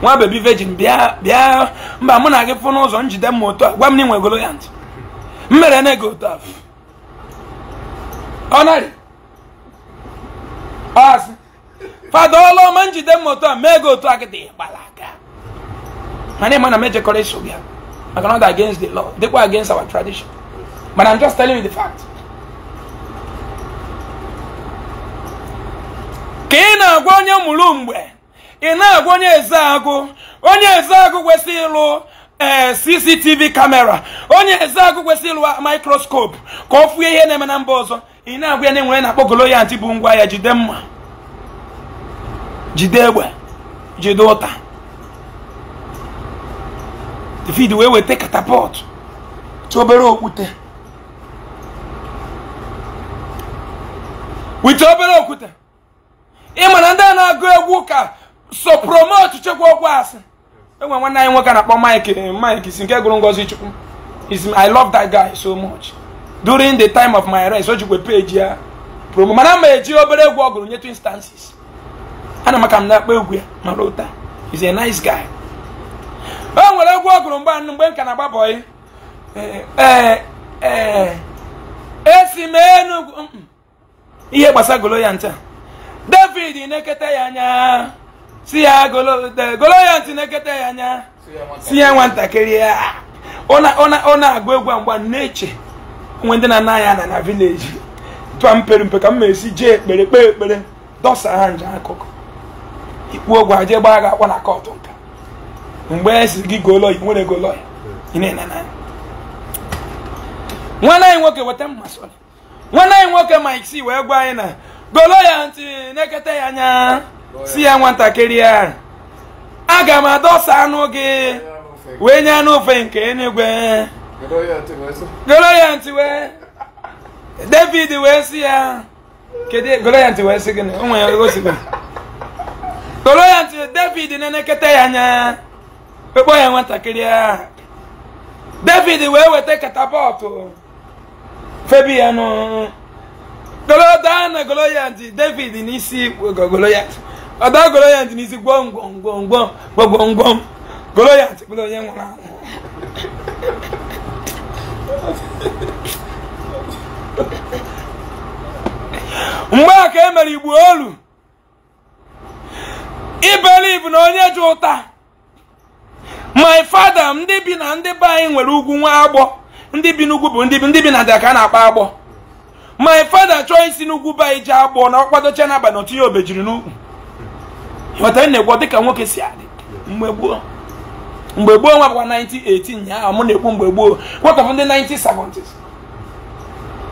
nwa bebi vejin bịa bịa mba mụ na gị fụ n'ụzọ njide mma otu a gwa m na inwe gloyat m mere na ego otu afọ ọnarị ọasị fada ọlụọma njide mma otu a mee ego otu a gị dị gbala na name na mejekọrọ maka na ọ dị against the law dịkwa against our tradition but i'm just telling you the fact ka ị na-agwa onye mụrụ mgbe ị na-agwa onye eze agụ onye eze agụ kwesịrị ịlụ ee eh, cctv kamera onye eze agụ kwesịrị ịlụ mikroskopu ka ọ ihe na-eme na mba ọzọ ị na-agwa ya na enwere na-akpọ ngwa ya jide mma jide egbe jide ụta David wee weta katapọtụ tụ obere okwute wite obere okwute ị ma na ndị a na-agụ egwu ka so promote chekwa okwu asị enwe nwanne anyị nwoke na-akpọ Mike Mike si nke gụrụ Ngozi Chukwu is I love that guy so much during the time of my rest o jikwa peji ya promo mana ma eji obere egwu ọ gụrụ nye two instances ana m m na-akpọ egwu ya mara ụta is a nice guy e nwere egwu ọgụrụ gụrụ anụ mgbe m ka na-agba bọyị e, e, e, esi m enugwu mm, mm. ihe gbasa golo ya ncha david n'ekete ya anya si ya golo ya ntị na ya anya si ya nwatakịrị ya ọ na-agụ egwu mgba na-eche nwe ndị na-ana ya na na vileji tụa mpere mpe ka m esi jee ekpere kpee ekpere dọsa ha nje akụkụ ikpu ogwe aje gbaa ga akpọ na kọtụ nka mgbe esi gị golo lọya nwere golo ị na-ene na lọya nwanne anyị nwoke weta mma sọrọ nwanne anyị nwoke ma C wee gwa anyị na golo ya ntị na-ekete ya anya si ya nwatakịrị ya aga m adọsa anụ gị wee nye anụ ofe nke enigwe. golo ya ntị wee David wee si ya kedu golo ya ntị wee si gị na onwe ya gosigwe golo ya ntị David na-enekete ya anya wekpọ ya nwatakịrị ahụ david wee weta katapọtụ febian goloda na goloyat david n'isi goloyat ọda goloyat n'isi gwom gwom gwọm. gwom gwom gwom goloyat bụrụ onye nwụrụ anwụ mgbe a ka e mere igbo olu ibeliv na onye ji ụta my father ndị bi na ndị be anyị nwere ugwu nwa agbọ ndị bi n'ugwu bụ ndị bi ndị bi na ndịda ka a na-akpa agbọ my father chọọ isi n'ugwu be anyị jee agbọ na ọkwadocha n'abalị otu jiri n'ukwu na-egwọ dịka nwoke si adị mgbe gboo mgbe gboo nwa bụkwa na-ekwu mgbe gboo kwekọfụ ndị 1970s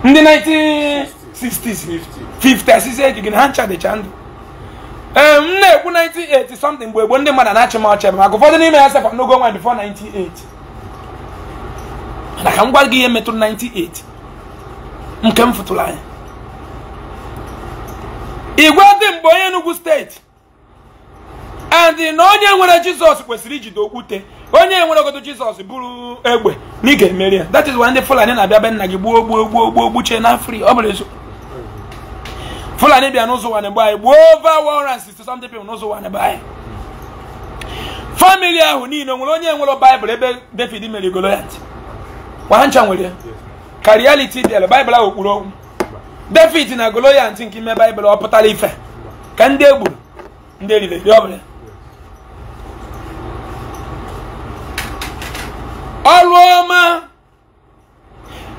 ndị 1960 ndụ ee m na-ekwu 98 something mgbe gboo ndị mmadụ na-achị m ọchị maka ụfọdụ n'ime ya sekwa n'ogo nwa bifo 98 mana ka m gwa gị ihe metụrụ 98 nke m fụtụrụ igwe dị mgbe onye Enugu steeti and na onye nwere jizọs kwesịrị ijide okwute onye nwere ogodo jizọs bụrụ egbe na ị ga-emeri ya that is why ndị fulani na be nna gị gbuo gbuo gbuo gbuchie na fri ọ bụla eziokwu fulani bịa n'ụzọ ụwa na-egbu anyị gbuo over 160 something people n'ụzọ ụwa na-egbu anyị famili ahụ niile nwere onye nwere baịbụl ebe david mere goloyat ha ncha nwere ka reality bịara baịbụl ahụ okpuru okwu david na goloyat nke ime baịbụl ọ pụtara ife ka ndị egbu ndị eriri eri ọbụla ọrụ ọma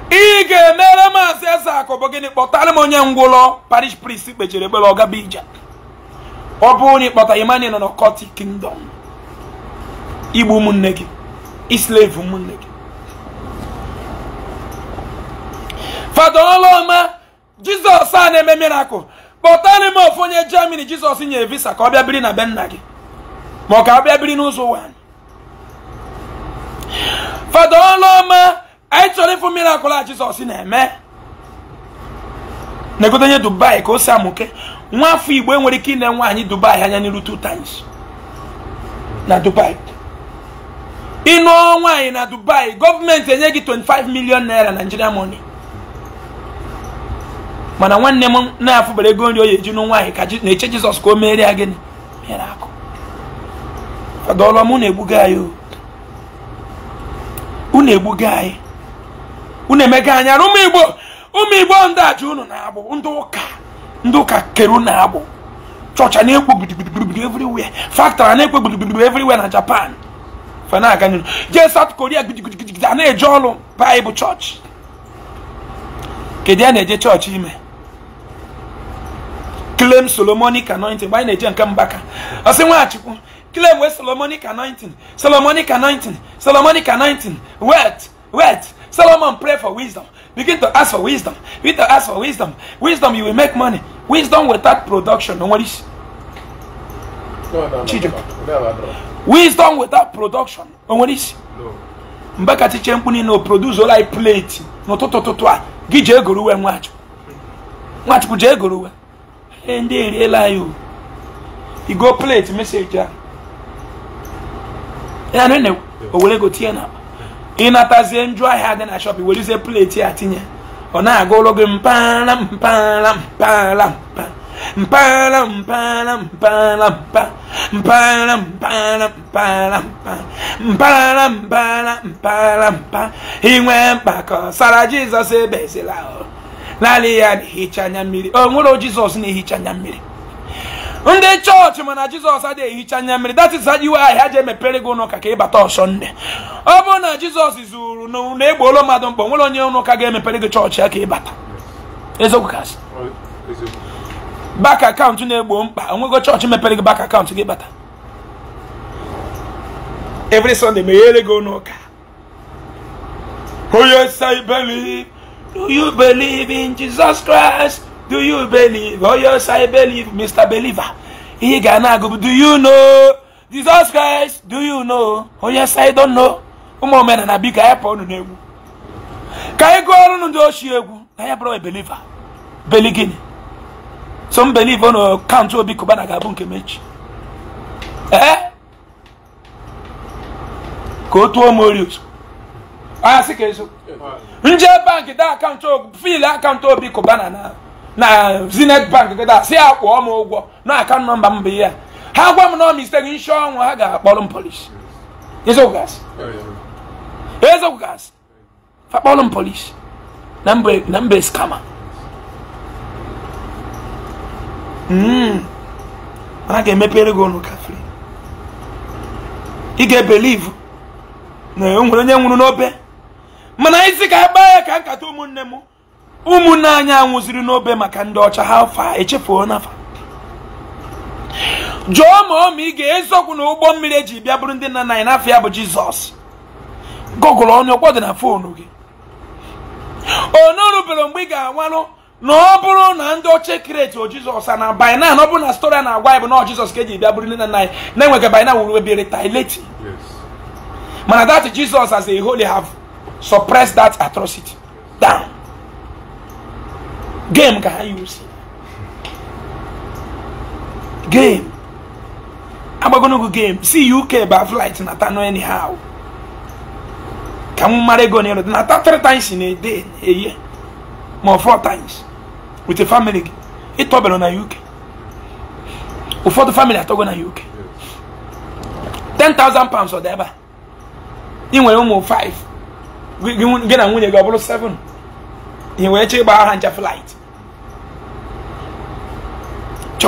ị ga-emere maazị eze akụ gịnị kpọtara m onye ngwụlọ parish priest kpechiri ekpere ọgaba ije ọ bụrụ na ịkpọta Emmanuel na kọti kingdom igbu ụmụnne gị islave ụmụnne gị fada ọlụọma jizọs a na-eme mirakụl kpọtara m ofu onye germany jizọs nyere visa ka ọ bịa biri na be nna gị ma ọ ka ọ bịa biri n'ụzọ ụwa fada ọlụọma anyị chọrọ ịfụ mmiri akwụla jizọs na-eme na-egote nye dubai ka o si amụke nwa afọ igbo enwere ike ine nwaanyị dubai anya n'iru two times na dubai ịnụọ nwaanyị na dubai gọọmenti enye gị 25 million naira naijiria money mana nwanne m na-afụbara ego nri o ya eji nụ nwaanyị ka na-eche jizọs ka o meere ya gịnị mere akụ fadọlọ m na-egbuga anyị unu egbuga anyị unu emega anya na ụmụ igbo ụmụ igbo ndị aja unu na abụ ndị ụka ndị ụka kere unu agbụ chọcha na-ekwo gbudugbudugbudu everywhere factory na-ekwo gbudugbudugbu everywhere na japan fana-aga n'ihu jee south koria gudugudugudu a na-eje ọrụ baịbụl chọọchị kedu ya na-eje chọọchị ime klem solomonic anointing mgbe anyị na-eje nke mbaka ọsị nwachukwu klem wee solomonic anointing solomonic anointing solomonic anointing wet wet Solomon prayed for wisdom. Begin to ask for wisdom. Begin to ask for wisdom. Wisdom, you will make money. Wisdom without production. No one wisdom without production. No one is. Mbakati chempuni no produce all I plate. No toto toto. Ah. Gije guru we mwachu. Mwachu kuje guru we. Ndi riela you. You go plate message ah. ya. Ya nene. Owele go tie na. ịnatazie njụ ahịa dị na shọp werizie plate ya tinye ọ na-aga ụlọ gị mpaghara mpaghara mpaghara mpa mpaghara mpaghara mpaghara mpa mpaghara mpaghara mpaghara mpa mpaghara mpaghara mpaghara mpa inwe mkpa ka ọ sara jizọs ebezila e naanị ya na-ehicha anya mmiri o nwere jizọs na-ehicha anya mmiri ndị chọọchị mana jizọs adịghị ehicha anya mmiri that is iwe ahịa ji emepere gị ụnụ ka ka ịbata ọsọnde ọ bụrụ na jizọs zuru na egboolo mmadụ mkpọ nwere onye ụnụ ụka ga-emepere gị chọọchị ya ka ịbata eziokwu asị bak akaụntụ na-egbo mkpa onwego chọọchị mepere gị bak akaụntụ gị bata evri sọnde meghere gị ụnụ onye sa believe do you believe in jesus christ do you believe or yes i believe mr believer ihe ga na do you know jesus christ do you know onye oh, si don know ụmụ na bi anyị pụọ unu n'egwu ka anyị gụọ ọrụ ndị shi egwu na ya bụrụ beliver beli gịnị so m believe na kaụntụ obi kụbana ga-abụ nke mechi eh ka otu tuo m orios anya si ka nje bank da akaụntụ fiil akaụntụ obi kụbana na na zenith bank gada si ya m ụgwọ na akaụntụ nọmba mba bụ ihe ha gwa m na mistake nshi ọnwụ ha ga-akpọrọ m polish ezogasị ezogasị fakpọrọ m polish na mbe skama hmm. mana ga-emepere gị ọnụ kafiri ị ga-ebelivu na o onye nwụrụ n'obe mana isi ka a ya ka nkata ụmụnne m ụmụnne anyị anwụziri n'obe maka ndị ọcha ha fa echefuo n'afa jụọ ma ọ ma ị ga-eziokwu na ụgbọ mmiri eji bịa bụrụ ndị nna nna anyị n'afọ ya bụ jizọs gọgụlụ ọnụ ọkwọ dị na fonu gị onurubere mgbe ị ga-anwanụ na ọ bụrụ na ndị oche kireti o jizọs na na ọ bụrụ na stori a na-agwa anyị bụ na jizọs ka eji bịa bụrụ ndị nna nna anyị na-enweghị bainan wuru ebere taileti mana that jizọs as a holy have suppressed that atrocity down game ka ha game agbagonogo game si uk ba flight nata no anyhow ka m mara ego n'elu nata three times in a day eye ma four times with a family gị ịtọbere na uk ụfọdụ family atọgo na uk 10,000 pounds ọ dị ebe a ị nwere ụmụ 5 gị na nwunye gị ọ bụrụ 7 ị wee chee ịgba aha ncha flight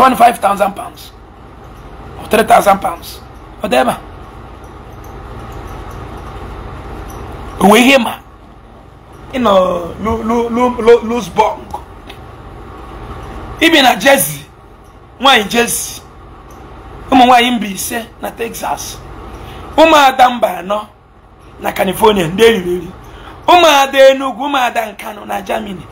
25,000 pounds or 3,000 pounds whatever uwe ihe ma ịnọ losbong ibi na jersey nwanyị jersey ụmụ nwanyị mba ise na texas ụmụada mba nọ na california ndị eriri ụmụada enugu ụmụada nkanụ na germany